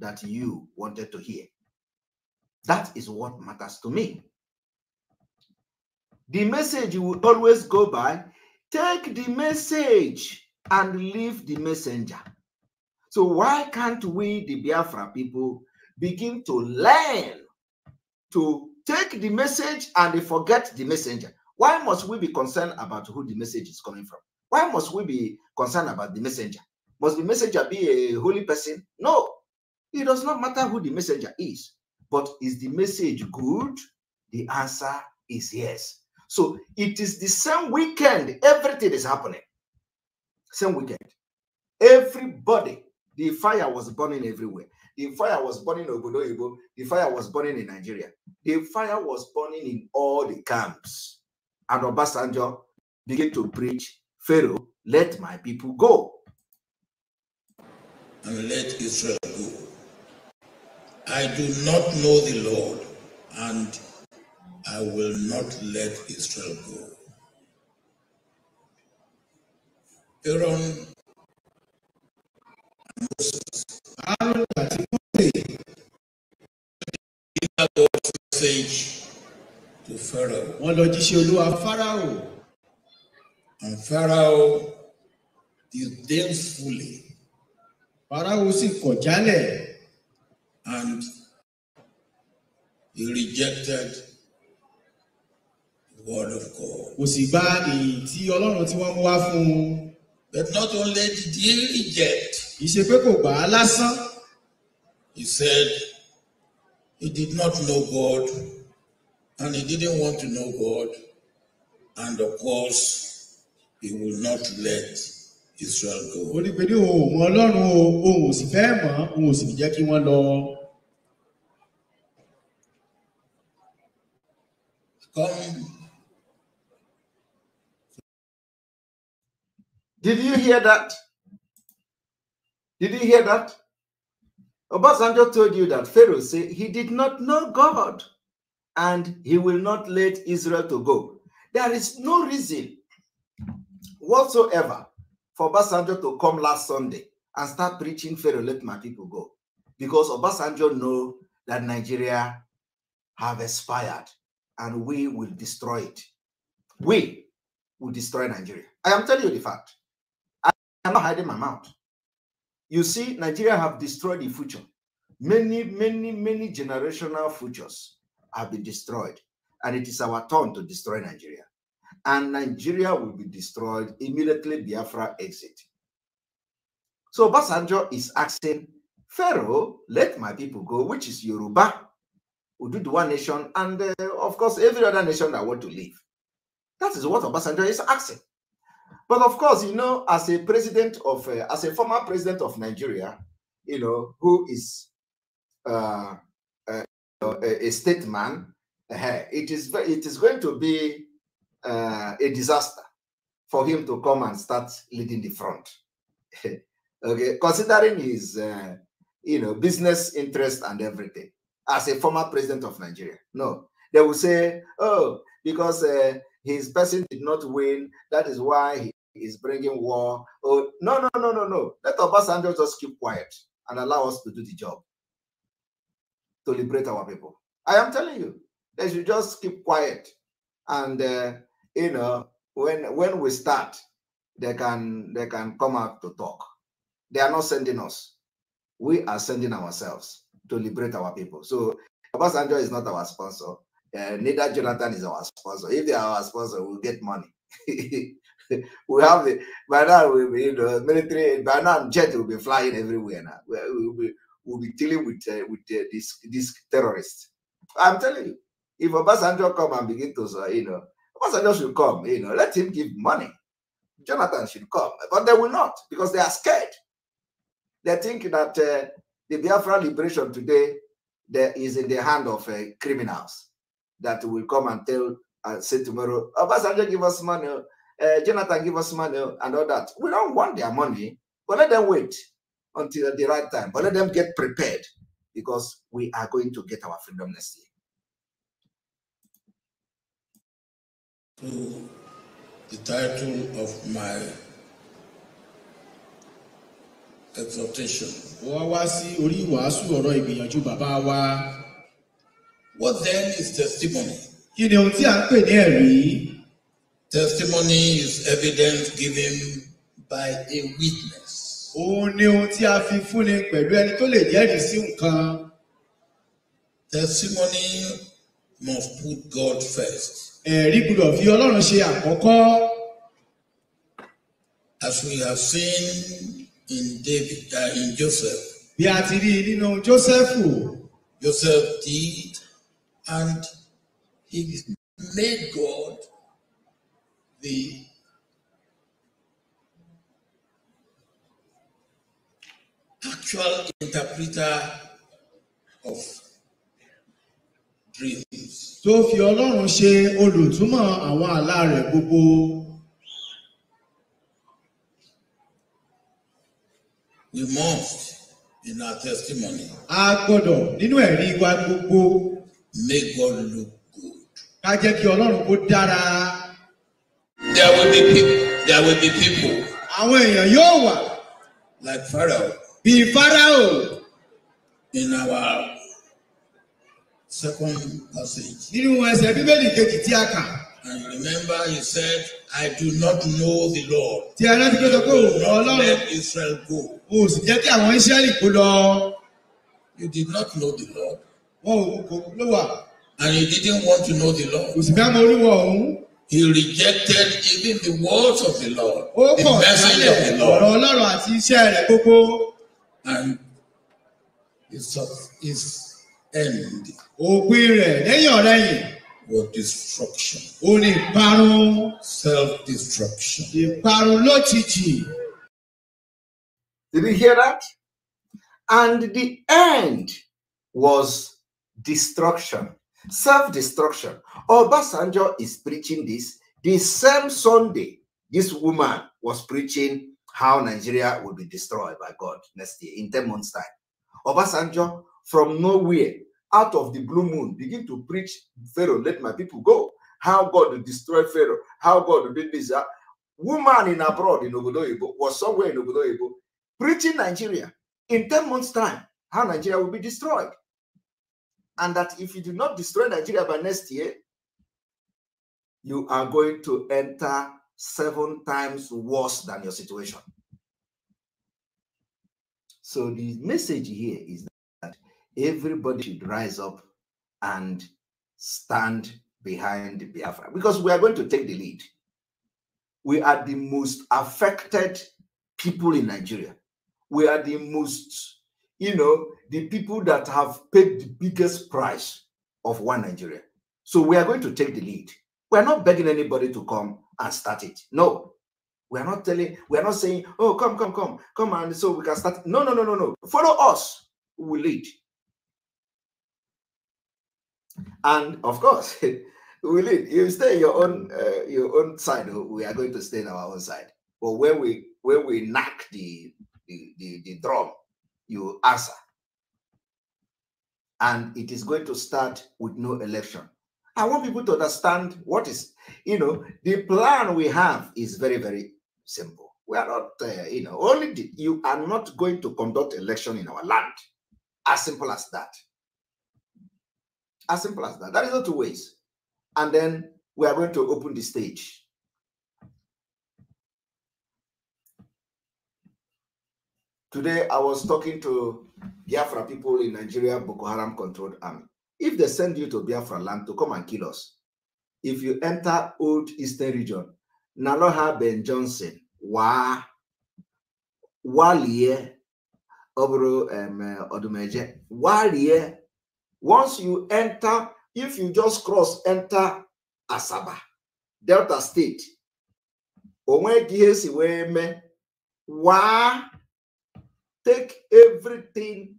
that you wanted to hear? That is what matters to me. The message you will always go by Take the message and leave the messenger. So, why can't we, the Biafra people, begin to learn to take the message and forget the messenger? Why must we be concerned about who the message is coming from? Why must we be concerned about the messenger? Must the messenger be a holy person? No, it does not matter who the messenger is. But is the message good? The answer is yes. So it is the same weekend, everything is happening. Same weekend. Everybody, the fire was burning everywhere. The fire was burning in Obodoyibo. The fire was burning in Nigeria. The fire was burning in all the camps. And Obasanjo began to preach, Pharaoh, let my people go. And let Israel go. I do not know the Lord, and I will not let Israel go. Aaron Moses. Aaron particularly delivered God's message to Pharaoh. Wọ́n lọ jíṣẹ́ Olúwa Pharaoh. And Pharaoh disdainfully. Pharaoh was kọ̀ jálẹ̀. And he rejected word of God. Kò sì gba èyí tí Ọlọ́run tí wọ́n mú wá fún un. But not only did he reject. Kì í ṣe pé kò gbà á lásán. He said he did not know God and he didn't want to know God and of course he would not let Israel go. Ó ní pé ní òun mọ Ọlọ́run o, òun ò sì fẹ́ mọ̀, òun ò sì jẹ́ kí wọ́n lọ. Come Did you hear that? Did you hear that? Obasanjo told you that Pharaoh said he did not know God and he will not let Israel to go. There is no reason whatsoever for Obasanjo to come last Sunday and start preaching Pharaoh, let my people go. Because Obasanjo know that Nigeria have expired and we will destroy it. We will destroy Nigeria. I am telling you the fact. I'm not hiding my mouth. You see, Nigeria have destroyed the future. Many, many, many generational futures have been destroyed. And it is our turn to destroy Nigeria. And Nigeria will be destroyed immediately Biafra exit. So Basanjo is asking, Pharaoh, let my people go, which is Yoruba, Ududu one nation, and uh, of course every other nation that want to leave. That is what Obasanjo is asking. But of course, you know, as a president of, uh, as a former president of Nigeria, you know, who is uh, uh, a, a statesman, eh, it is it is going to be uh, a disaster for him to come and start leading the front. [laughs] okay, considering his, uh, you know, business interest and everything, as a former president of Nigeria, no, they will say, oh, because uh, his person did not win. That is why he is bringing war. Oh, no, no, no, no, no. Let Obasanjo just keep quiet and allow us to do the job to liberate our people. I am telling you, they should just keep quiet. And, uh, you know, when when we start, they can they can come out to talk. They are not sending us. We are sending ourselves to liberate our people. So Obasanjo is not our sponsor. Eh, neither Jonathan is our sponsor. If they are our sponsor, we'll get money. [laughs] we have the by now we will will in the military by now jet will be flying everywhere now. We'll be we'll be dealing with uh, with uh, this this terrorist. I'm telling you, if Obasanjo come and begin to say, you know Obasanjo should come, you know, let him give money. Jonathan should come, but they will not because they are scared. They think that uh, the Biafra liberation today there is in the hand of criminals that will come and tell and uh, say tomorrow, Obasanjo, oh, give us money, uh, Jonathan, give us money, and all that. We don't want their money, but let them wait until the right time, but let them get prepared because we are going to get our freedom next year. To the title of my exhortation. What then is testimony? Kí ni ohun tí a ń pè ní ẹ̀rí? Testimony is evidence given by a witness. Òun ni ohun tí a fi fúnni pẹ̀lú ẹni tó lè jẹ́rìí sí nǹkan. Testimony must put God first. Ẹ̀rí gbọ́dọ̀ fi Ọlọ́run ṣe àkọ́kọ́. As we have seen in David, uh, in Joseph. Bí a ti rí nínú Jósẹ́fù. Joseph did and he made God the actual interpreter of dreams. tó fi ọlọ́run ṣe olùtúmọ̀ àwọn àlá rẹ̀ gbogbo. we must in our testimony. a gbọ́dọ̀ nínú ẹ̀rí wa gbogbo. Make God look good. Ká jẹ́ kí Ọlọ́run kó dára. There will be people. There will be people. Àwọn èèyàn yóò wà. Like Pharaoh. Bí Pharaoh. In our second passage. Nínú ẹsẹ̀ Bíbélì kejì tí a kà. And remember he said, I do not know the Lord. Tí a rántí pé sọ pé òun Ọlọ́run. Let Israel go. O sì jẹ́ kí àwọn Ísírẹ́lì kó lọ. You did not know the Lord. And he didn't want to know the Lord. He rejected even the words of the Lord. Ó And his, his end. Òpin was destruction. o ìparun. Self-destruction. Did you hear that? And the end was destruction, self destruction. Obasanjo is preaching this the same Sunday this woman was preaching how Nigeria will be destroyed by God next year in 10 months' time. Obasanjo, from nowhere, out of the blue moon, begin to preach Pharaoh, let my people go. How God will destroy Pharaoh, how God will do this. Uh, woman in abroad in Obodoyibo was somewhere in Obodoyibo preaching Nigeria in 10 months' time, how Nigeria will be destroyed and that if you do not destroy Nigeria by next year, you are going to enter seven times worse than your situation. So the message here is that everybody should rise up and stand behind Biafra because we are going to take the lead. We are the most affected people in Nigeria. We are the most you know, the people that have paid the biggest price of one Nigeria. So we are going to take the lead. We are not begging anybody to come and start it. No. We are not telling, we are not saying, oh, come, come, come, come, and so we can start. No, no, no, no, no. Follow us. We lead. And of course, [laughs] we lead. You stay your own uh, your own side. We are going to stay on our own side. But when we when we knock the, the the, the drum, you answer. And it is going to start with no election. I want people to understand what is, you know, the plan we have is very, very simple. We are not, uh, you know, only the, you are not going to conduct election in our land. As simple as that. As simple as that. That is not two ways. And then we are going to open the stage Today, I was talking to Biafra people in Nigeria, Boko Haram controlled army. If they send you to Biafra land to come and kill us, if you enter old eastern region, Naloha Ben Johnson, Wa, Walie, Obro eh, Odumeje, Walie, once you enter, if you just cross, enter Asaba, Delta State, Onwe Gihesi Weme, Wa, take everything,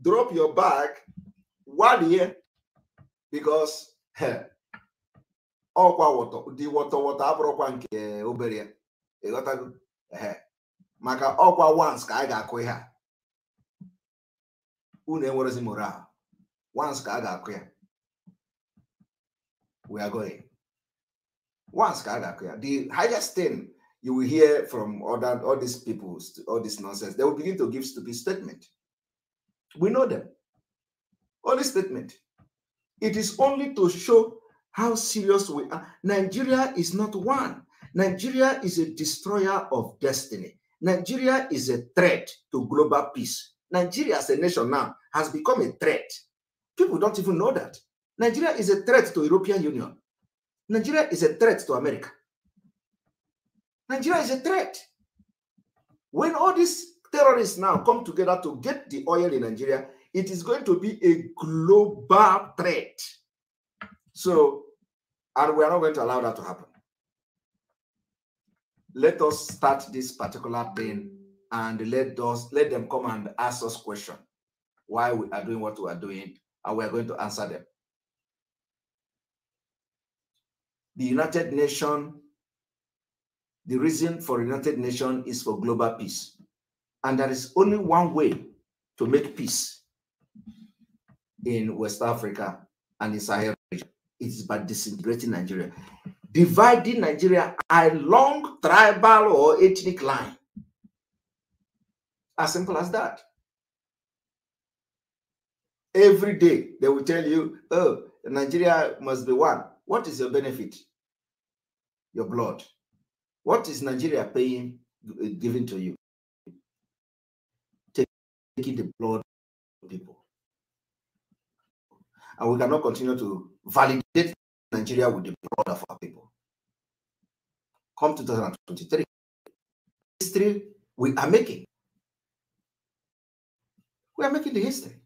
drop your bag one year because ọkwa dị wọtọ wọtọ abụrụkwa nke obere ịghọtago maka ọkwa wans ka a ga-akụ ihe a unu enwerezi moral once ka a ga-akụ ya we are going ka a ga-akụ ya the highest thing you will hear from other all these people, all this nonsense. They will begin to give stupid statement. We know them. Only statement. It is only to show how serious we are. Nigeria is not one. Nigeria is a destroyer of destiny. Nigeria is a threat to global peace. Nigeria as a nation now has become a threat. People don't even know that. Nigeria is a threat to European Union. Nigeria is a threat to America. Nigeria is a threat. When all these terrorists now come together to get the oil in Nigeria, it is going to be a global threat. So, and we are not going to allow that to happen. Let us start this particular thing and let us let them come and ask us questions why we are doing what we are doing, and we are going to answer them. The United Nations the reason for United Nations is for global peace. And there is only one way to make peace in West Africa and in Sahel region. It is by disintegrating Nigeria. Dividing Nigeria along tribal or ethnic line. As simple as that. Every day they will tell you, oh, Nigeria must be one. What is your benefit? Your blood. What is Nigeria paying, uh, giving to you? Taking the blood of people. And we cannot continue to validate Nigeria with the blood of our people. Come 2023, history we are making. We are making the history.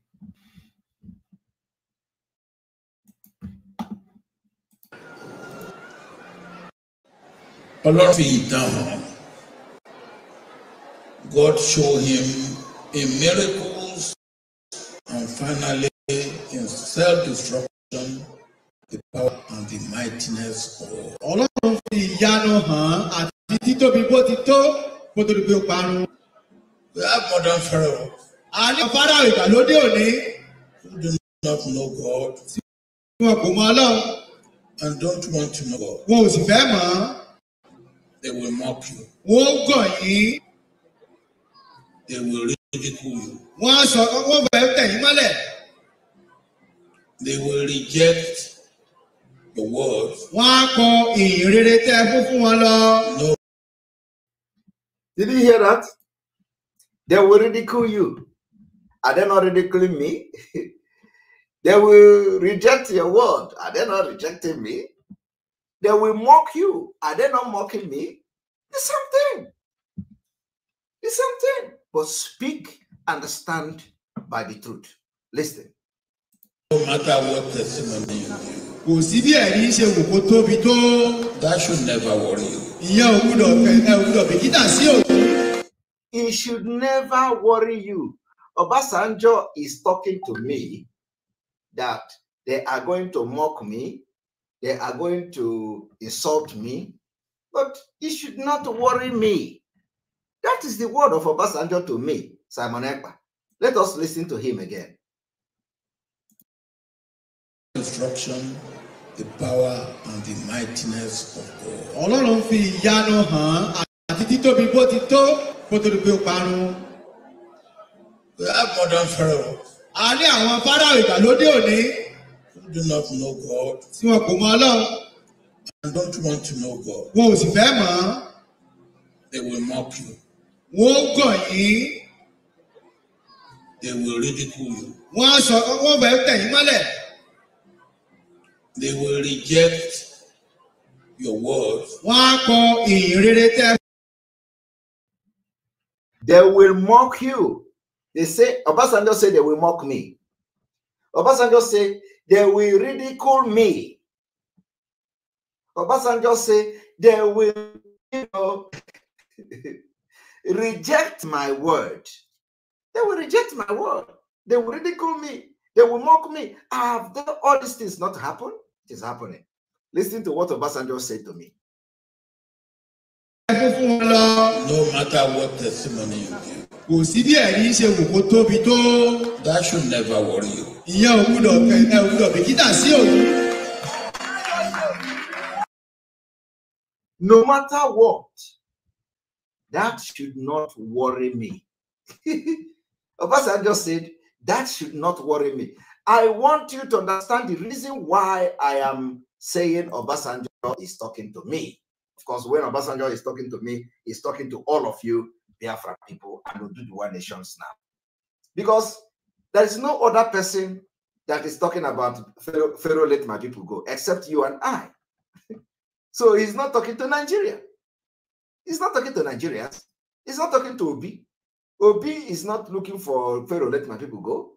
Ọlọ́run fi ìtàn hàn. God show him in miracles and finally in self-destruction the power and the mightiness of God. Ọlọ́run fi ìyanu hàn àti títóbi bó ti tó kó tó di pé ó parun. We have modern pharaoh. A ní Pharaoh ìgbàlódé òní. Who do not know God. Tí wọn kò mọ Ọlọ́run. And don't want to know God. Wọn ò sì fẹ́ mọ̀ ọ́. They will mock you. Wọ́n gọ̀ yín. They will ridicule you. Wọ́n á sọ wọ́n bẹ̀rẹ̀ tẹ̀ yín mọ́lẹ̀. They will reject the word. Wọ́n á kọ ìyìn rere tẹ́ ẹ No. Did you hear that? They will ridicule you. Are they not ridiculing me? [laughs] they will reject your word. Are they not rejecting me? They will mock you. Are they not mocking me? The same thing. The same thing. But speak, understand by the truth. Listen. No matter what testimony you Kò sí bí ẹ̀rí ṣe wò kó tóbi tó. That should never worry you. Ìyá òwúrọ̀ ẹ òwúrọ̀ bìkítà sí òwú. It should never worry you. Obasanjo is talking to me that they are going to mock me they are going to insult me, but it should not worry me. That is the word of Obasanjo to me, Simon Ekpa. Let us listen to him again. Instruction, the power and the mightiness of God. Ọlọ́run fi ìyanu hàn àti títóbi bó ti tó kó tó di pé ó parun. We have A ní àwọn fáráò ìgbàlódé òní do not know God. Tí wọn kò mọ Ọlọ́run. And don't want to know God. Wọn ò sì fẹ́ mọ̀ They will mock you. Wọ́n gọ̀ yín. They will ridicule you. Wọ́n á sọ wọ́n bẹ̀rẹ̀ tẹ̀yìn mọ́lẹ̀. They will reject your word. Wọ́n á kọ ìyìn rere tẹ́. They will mock you. They say, Obasanjo say they will mock me. Obasanjo said, they will ridicule me. Obasanjo said, they will you know, [laughs] reject my word. They will reject my word. They will ridicule me. They will mock me. Have all these things not happened? It is happening. Listen to what Obasanjo said to me. No matter what testimony you give, that should never worry you gbúdọ̀ bìkítà sí òun. No matter what, that should not worry me. [laughs] Obasa just said, that should not worry me. I want you to understand the reason why I am saying Obasanjo is talking to me. Of course, when Obasanjo is talking to me, he's talking to all of you, Biafra people, and One nations now. Because there is no other person that is talking about Pharaoh, Pharaoh let my people go except you and I. [laughs] so he's not talking to Nigeria. He's not talking to Nigerians. He's not talking to Obi. Obi is not looking for Pharaoh let my people go.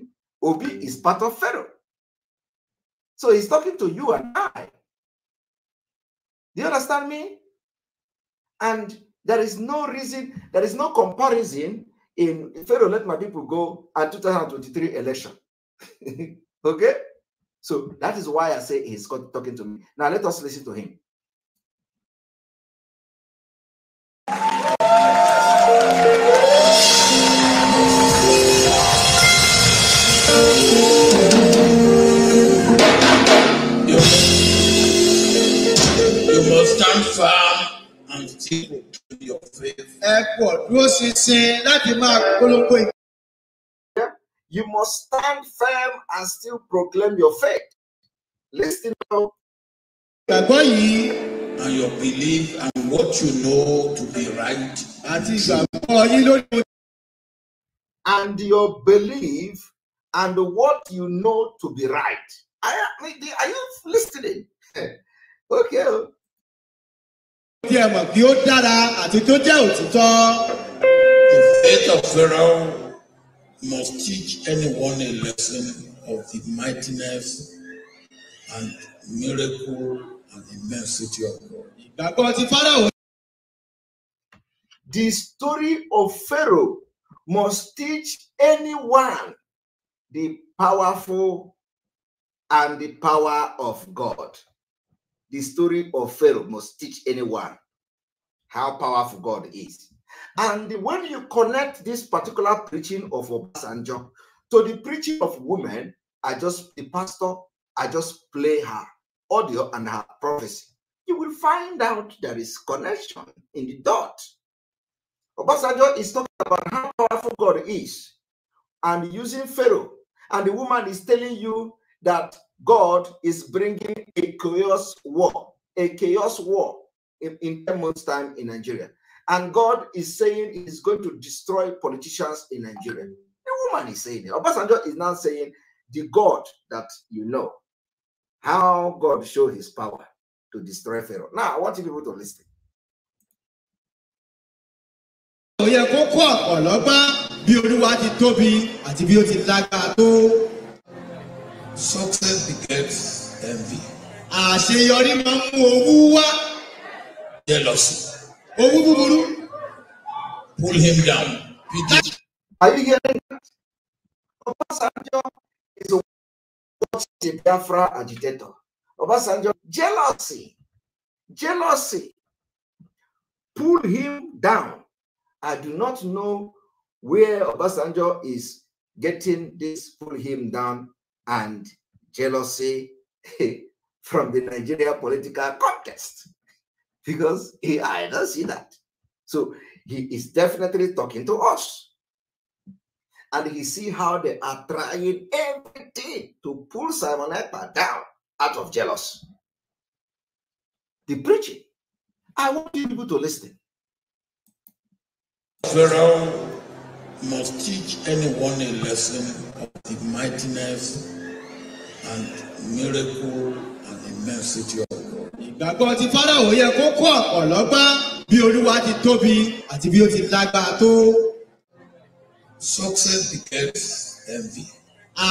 [laughs] Obi is part of Pharaoh. So he's talking to you and I. Do you understand me? And there is no reason, there is no comparison in Pharaoh, let my people go and 2023 election. [laughs] okay? So that is why I say he's talking to me. Now let us listen to him. You, must stand firm and your faith. You must stand firm and still proclaim your faith. Listen now. And your belief and what you know to be right. And your belief and what you know to be right. I mean, are you listening? [laughs] okay. tí ẹ mọ̀ kí ó dára àti tó jẹ́ òtítọ́. The faith of Pharaoh must teach anyone a lesson of the mightiness and miracle and immensity of God. Ìgbàgbọ́ ti Pharaoh. The story of Pharaoh must teach anyone the powerful and the power of God. the story of Pharaoh must teach anyone how powerful God is. And when you connect this particular preaching of Obasanjo to the preaching of women, I just, the pastor, I just play her audio and her prophecy. You will find out there is connection in the dot. Obasanjo is talking about how powerful God is and using Pharaoh. And the woman is telling you that God is bringing a chaos war, a chaos war in, in 10 months' time in Nigeria. And God is saying he's going to destroy politicians in Nigeria. The woman is saying it. Obasanjo is now saying, the God that you know, how God showed his power to destroy Pharaoh. Now, I want you people to listen. kó bí olúwa ti tóbi àti bí ó ti tó Success begets envy. Àṣeyọrí máa ń mú owú wá. Jealousy. Owú búburú. Pull him down. Are you hearing that? Obasanjo is a Biafra agitator. Obasanjo, jealousy, jealousy pull him down. I do not know where Obasanjo is getting this pull him down and jealousy [laughs] from the Nigeria political context because he, I don't see that. So he is definitely talking to us. And he see how they are trying everything to pull Simon Epa down out of jealousy. The preaching. I want people to listen. Pharaoh must teach anyone a lesson of the mightiness and miracle and immensity of God. Ìgbàgbọ́ ti Fáráwò yẹ kó kó ọ̀pọ̀ lọ́gbọ́n bí Olúwa ti tóbi àti bí ó ti lágbára tó. Success begets envy.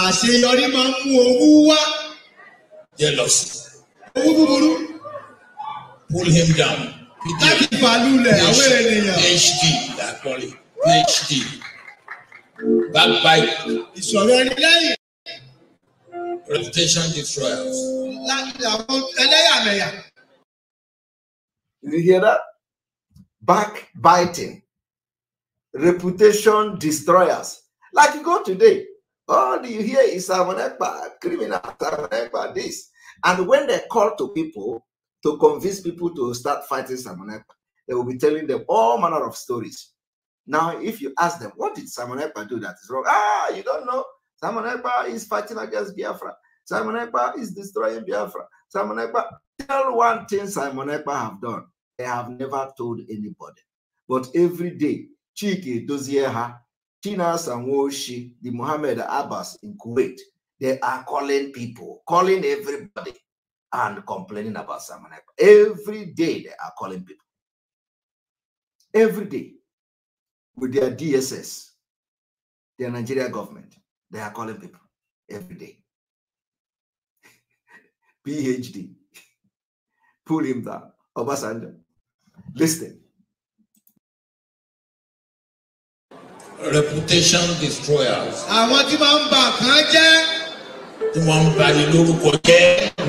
Àṣeyọrí máa ń mú owú wá. Jealousy. Owú búburú. Pull him down. Láti fàlùlẹ̀ àwọn ènìyàn. HD la kọ́lé. HD. Backbite. Ìṣòro ẹni lẹ́yìn. Reputation destroyers. Did you hear that? Backbiting. Reputation destroyers. Like you go today, all you hear is Samonekba, criminal, Samonekba, this. And when they call to people to convince people to start fighting Samonekba, they will be telling them all manner of stories. Now, if you ask them, what did Samonekba do that is wrong? Ah, you don't know. Simon Ekpa is fighting against Biafra. Simon Ekpa is destroying Biafra. Simon Ekpa, tell one thing Simon Ekpa have done. They have never told anybody. But every day, Chiki Dozieha, Tina Samwoshi, the Mohammed Abbas in Kuwait, they are calling people, calling everybody and complaining about Simon Ekpa. Every day they are calling people. Every day with their DSS, their Nigeria government. They are calling people every day. [laughs] PhD. Pull him down. Obasanjo. Listen. Reputation destroyers. Àwọn tí máa ń bà kán jẹ́. Tí wọ́n ń bà ní lórúkọ jẹ́.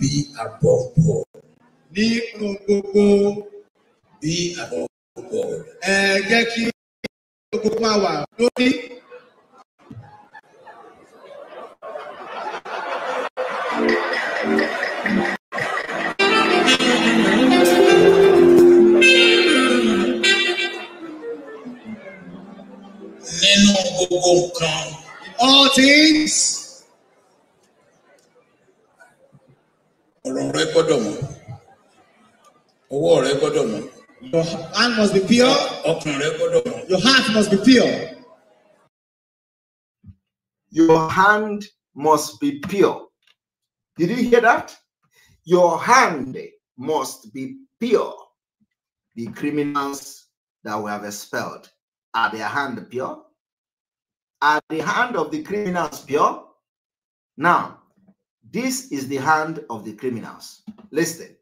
bí àbọ̀bọ̀. Nínú gbogbo bí àbọ̀bọ̀. Ẹ jẹ́ kí gbogbo máa wà lórí. Nínú gbogbo nǹkan. All things. rẹ gbọ́dọ̀ mọ́ owó rẹ gbọ́dọ̀ mọ́. Your hand must be pure. ọkàn rẹ gbọ́dọ̀ mọ́. Your heart must be pure. Your hand must be pure. Did you hear that? Your hand must be pure. The criminals that we have expelled are their hand pure? Are the hand of the criminals pure? Now, this is the hand of the criminals. Listen.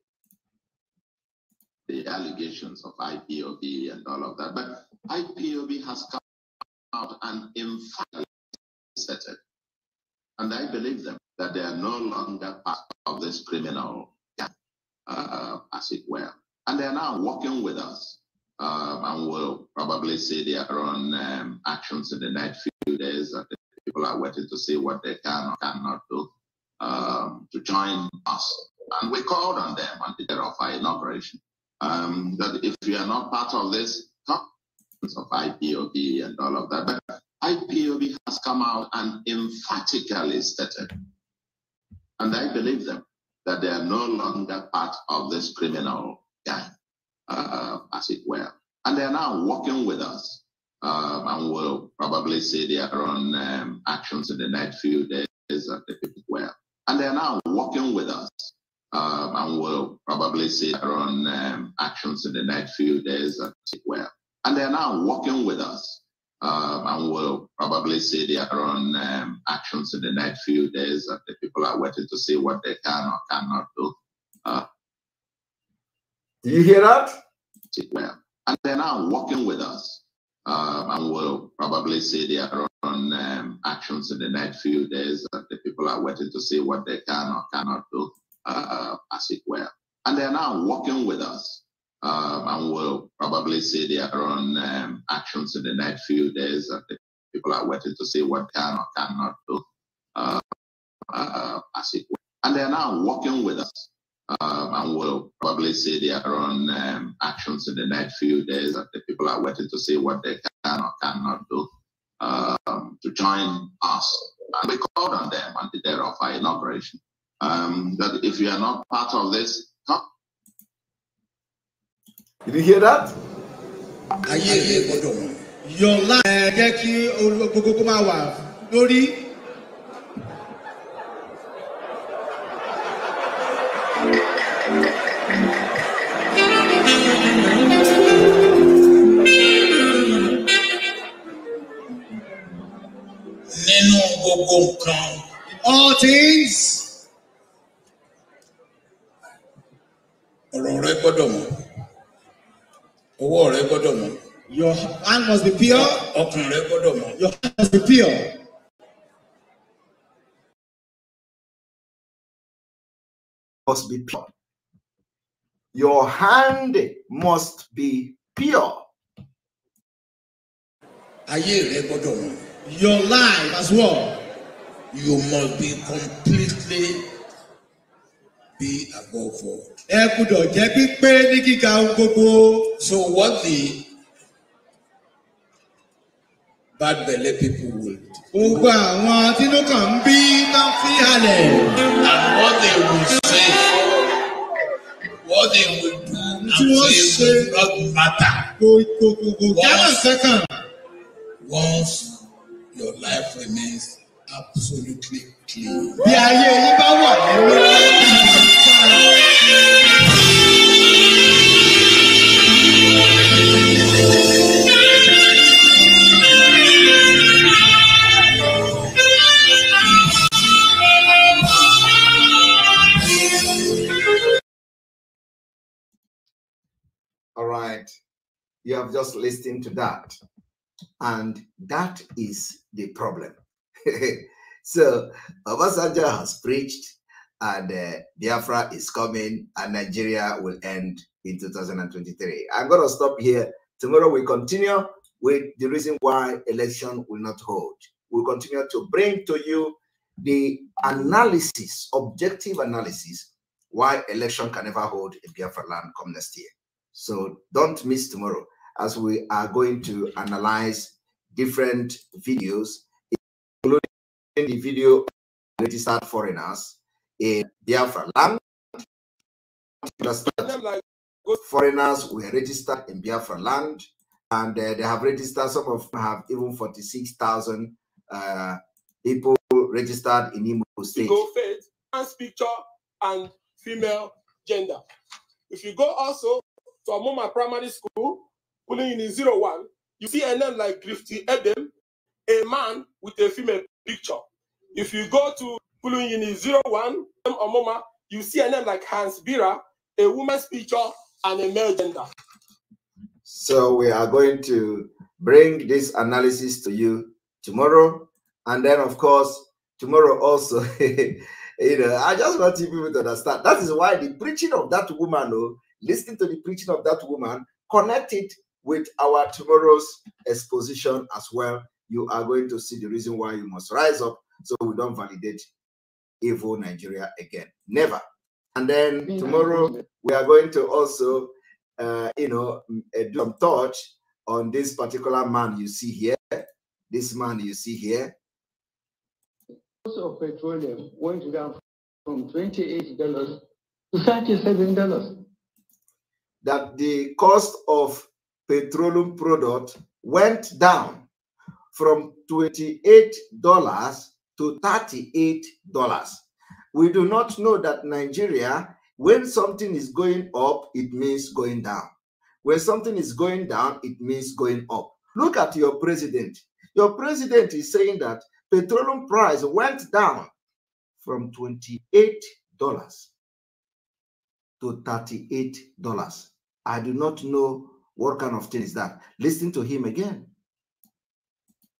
The allegations of IPOB and all of that, but IPOB has come out and emphatically said it. And I believe them that they are no longer part of this criminal, uh, as it were. And they are now working with us. Um, and we'll probably see their own um, actions in the next few days. And people are waiting to see what they can or cannot do um, to join us. And we called on them on the day of our inauguration um, that if you are not part of this of IPOB and all of that, but IPOB has come out and emphatically stated, and I believe them, that they are no longer part of this criminal gang, uh, as it were. And they are now working with us. Um, and we'll probably see their own um, actions in the next few days at the well. And they are now working with us. Um, and we'll probably see their own um, actions in the next few days and well. And they are now working with us. Um, and we'll probably see their own um, actions in the next few days. And the people are waiting to see what they can or cannot do. Uh, do you hear that? Well. And they're now working with us. Um, and we'll probably see their own um, actions in the next few days. that uh, the people are waiting to see what they can or cannot do, uh, as it were. And they're now working with us. Um, and we'll probably see their own um, actions in the next few days. that uh, the people are waiting to see what can or cannot do, uh, as it were. And they're now working with us and um, we'll probably see their own um, actions in the next few days. And the people are waiting to see what they can or cannot do um, to join us. And we called on them on the day of our inauguration that um, if you are not part of this, come. Did you hear that? Your life. God. all things, ọ̀rọ̀ rẹ gbọ́dọ̀ mọ́ owó rẹ gbọ́dọ̀ mọ́. Your hand must be pure. ọkàn rẹ gbọ́dọ̀ mọ́. Your hand must be pure. must be pure. Your hand must be pure. Your life as well. you must be completely be above all. Ẹ gbúdọ̀ jẹ́ pípé ní kíkà ohun gbogbo. So what the bad belle people will do. Gbogbo àwọn atínúkàn ń bí máa ń fi halẹ̀. And what they will say, what they will do, and they will not matter. Kò kò kò kò jábọ̀ Once your life remains absolutely clean. Yeah, All right, you have just listened to that. And that is the problem. [laughs] so Obasanjo has preached, and uh, Biafra is coming, and Nigeria will end in 2023. I'm going to stop here. Tomorrow we continue with the reason why election will not hold. We'll continue to bring to you the analysis, objective analysis, why election can never hold in Biafra land come next year. So don't miss tomorrow as we are going to analyze different videos the video registered foreigners in Biafra land. Understand foreigners were registered in Biafra land, and uh, they have registered. Some of them have even forty-six thousand uh, people registered in Imo State. Go faith, man's picture, and female gender. If you go also to Amoma Primary School, pulling in zero one, you see a name like Grifty Edem, a man with a female picture. If you go to Pulungini 01, Omoma, you see a name like Hans Bira, a woman's picture, and a male gender. So we are going to bring this analysis to you tomorrow. And then, of course, tomorrow also, [laughs] you know, I just want you people to understand. That is why the preaching of that woman, oh, listening to the preaching of that woman, connected with our tomorrow's exposition as well you are going to see the reason why you must rise up so we don't validate evil Nigeria again. Never. And then tomorrow we are going to also, uh, you know, uh, do some touch on this particular man you see here. This man you see here. Cost of petroleum went down from twenty-eight dollars to thirty-seven dollars. That the cost of petroleum product went down from $28 to $38. We do not know that Nigeria, when something is going up, it means going down. When something is going down, it means going up. Look at your president. Your president is saying that petroleum price went down from $28 to $38. I do not know what kind of thing is that. Listen to him again.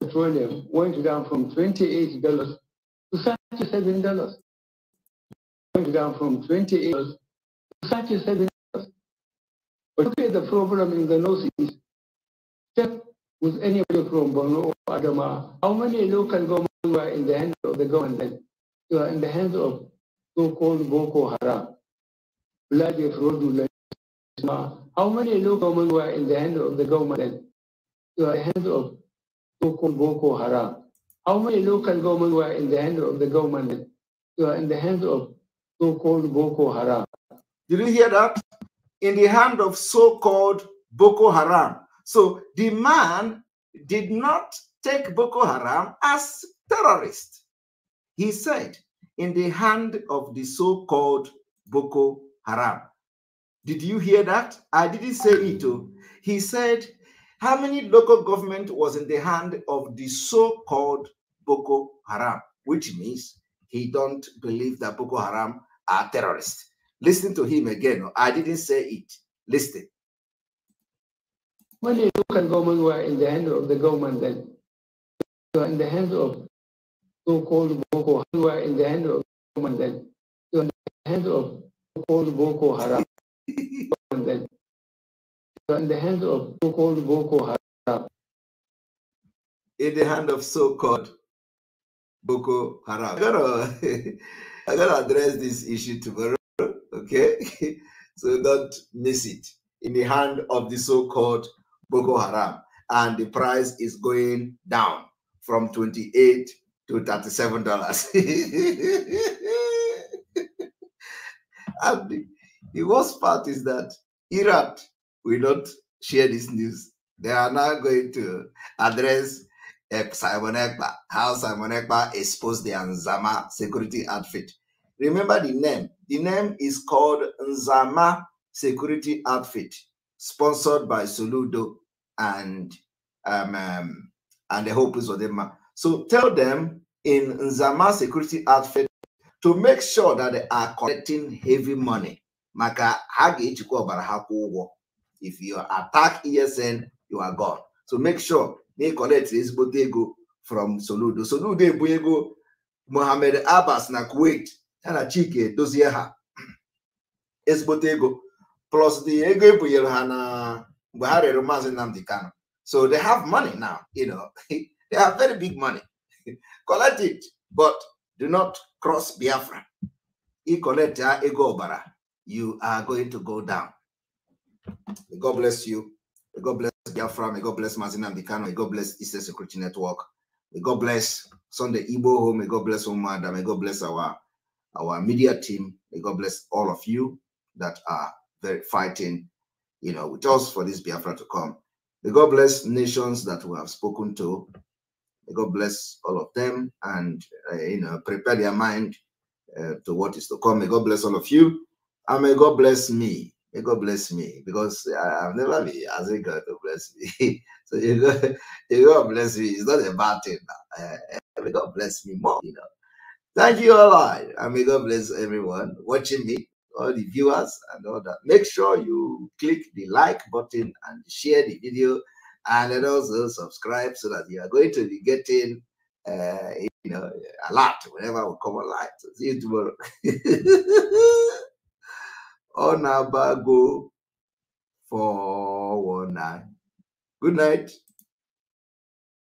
petroleum went down from $28 to $37. Went down from $28 to $37. But look at the problem in the northeast. Check with anybody from Borno or Adama. How many local governments were in the hands of the government? They were in the hands of so-called Boko Haram. Bloody fraudulent. How many local governments were in the hands of the government? They were in the hands of so-called Boko Haram. How many local government were in the hands of the government? They were in the hands of so-called Boko Haram. Did you hear that? In the hand of so-called Boko Haram. So the man did not take Boko Haram as terrorist. He said, in the hand of the so-called Boko Haram. Did you hear that? I didn't say it. He said, how many local government was in the hand of the so-called Boko Haram, which means he don't believe that Boko Haram are terrorists. Listen to him again. I didn't say it. Listen. When the local government were in the hand of the government, then you are in the hands of so-called Boko Haram. You are in the hand of the government, then you are in the hands of so-called Boko Haram. [laughs] in the hands of so-called Boko Haram. In the hand of so-called Boko Haram. I gotta, [laughs] I gotta address this issue tomorrow, okay? [laughs] so don't miss it. In the hand of the so-called Boko Haram, and the price is going down from 28 to 37 dollars. [laughs] and the, the worst part is that Iraq will not share this news. They are now going to address eh, Simon Ekpa, how Simon Ekpa exposed the Nzama security outfit. Remember the name. The name is called Nzama Security Outfit, sponsored by Soludo and um, um, and the Hope is them. So tell them in Nzama Security Outfit to make sure that they are collecting heavy money. Maka ha ga-ejikwa if you attack esn you are gone so make sure na ị collect ezigbote ego from soludo soludo ebu ego mohammed abbas na kuwait ya na chike edozie ha [clears throat] ezigbote ego plus the ego ebunyere ha na mgbe ha rere maazị nnamdị kano so they have money now you know [laughs] they have very big money [laughs] collect it but do not cross biafra ị collect ego ọbara you are going to go down May God bless you. May God bless Biafra. May God bless Mazina Bikano. May God bless Eastern Security Network. May God bless Sunday Igbo Home. May God bless Omada. May God bless our, our media team. May God bless all of you that are very fighting, you know, with us for this Biafra to come. May God bless nations that we have spoken to. May God bless all of them and, uh, you know, prepare their mind uh, to what is to come. May God bless all of you. And may God bless me May God bless me because I, have never been asking God to bless me. [laughs] so you God, [laughs] you God bless me. It's not a bad thing. Uh, may God bless me more. You know. Thank you all, right. and may God bless everyone watching me, all the viewers and all that. Make sure you click the like button and share the video, and then also subscribe so that you are going to be getting. Uh, you know, a lot whenever we come online. So see you tomorrow. [laughs] Onabago for one Good night.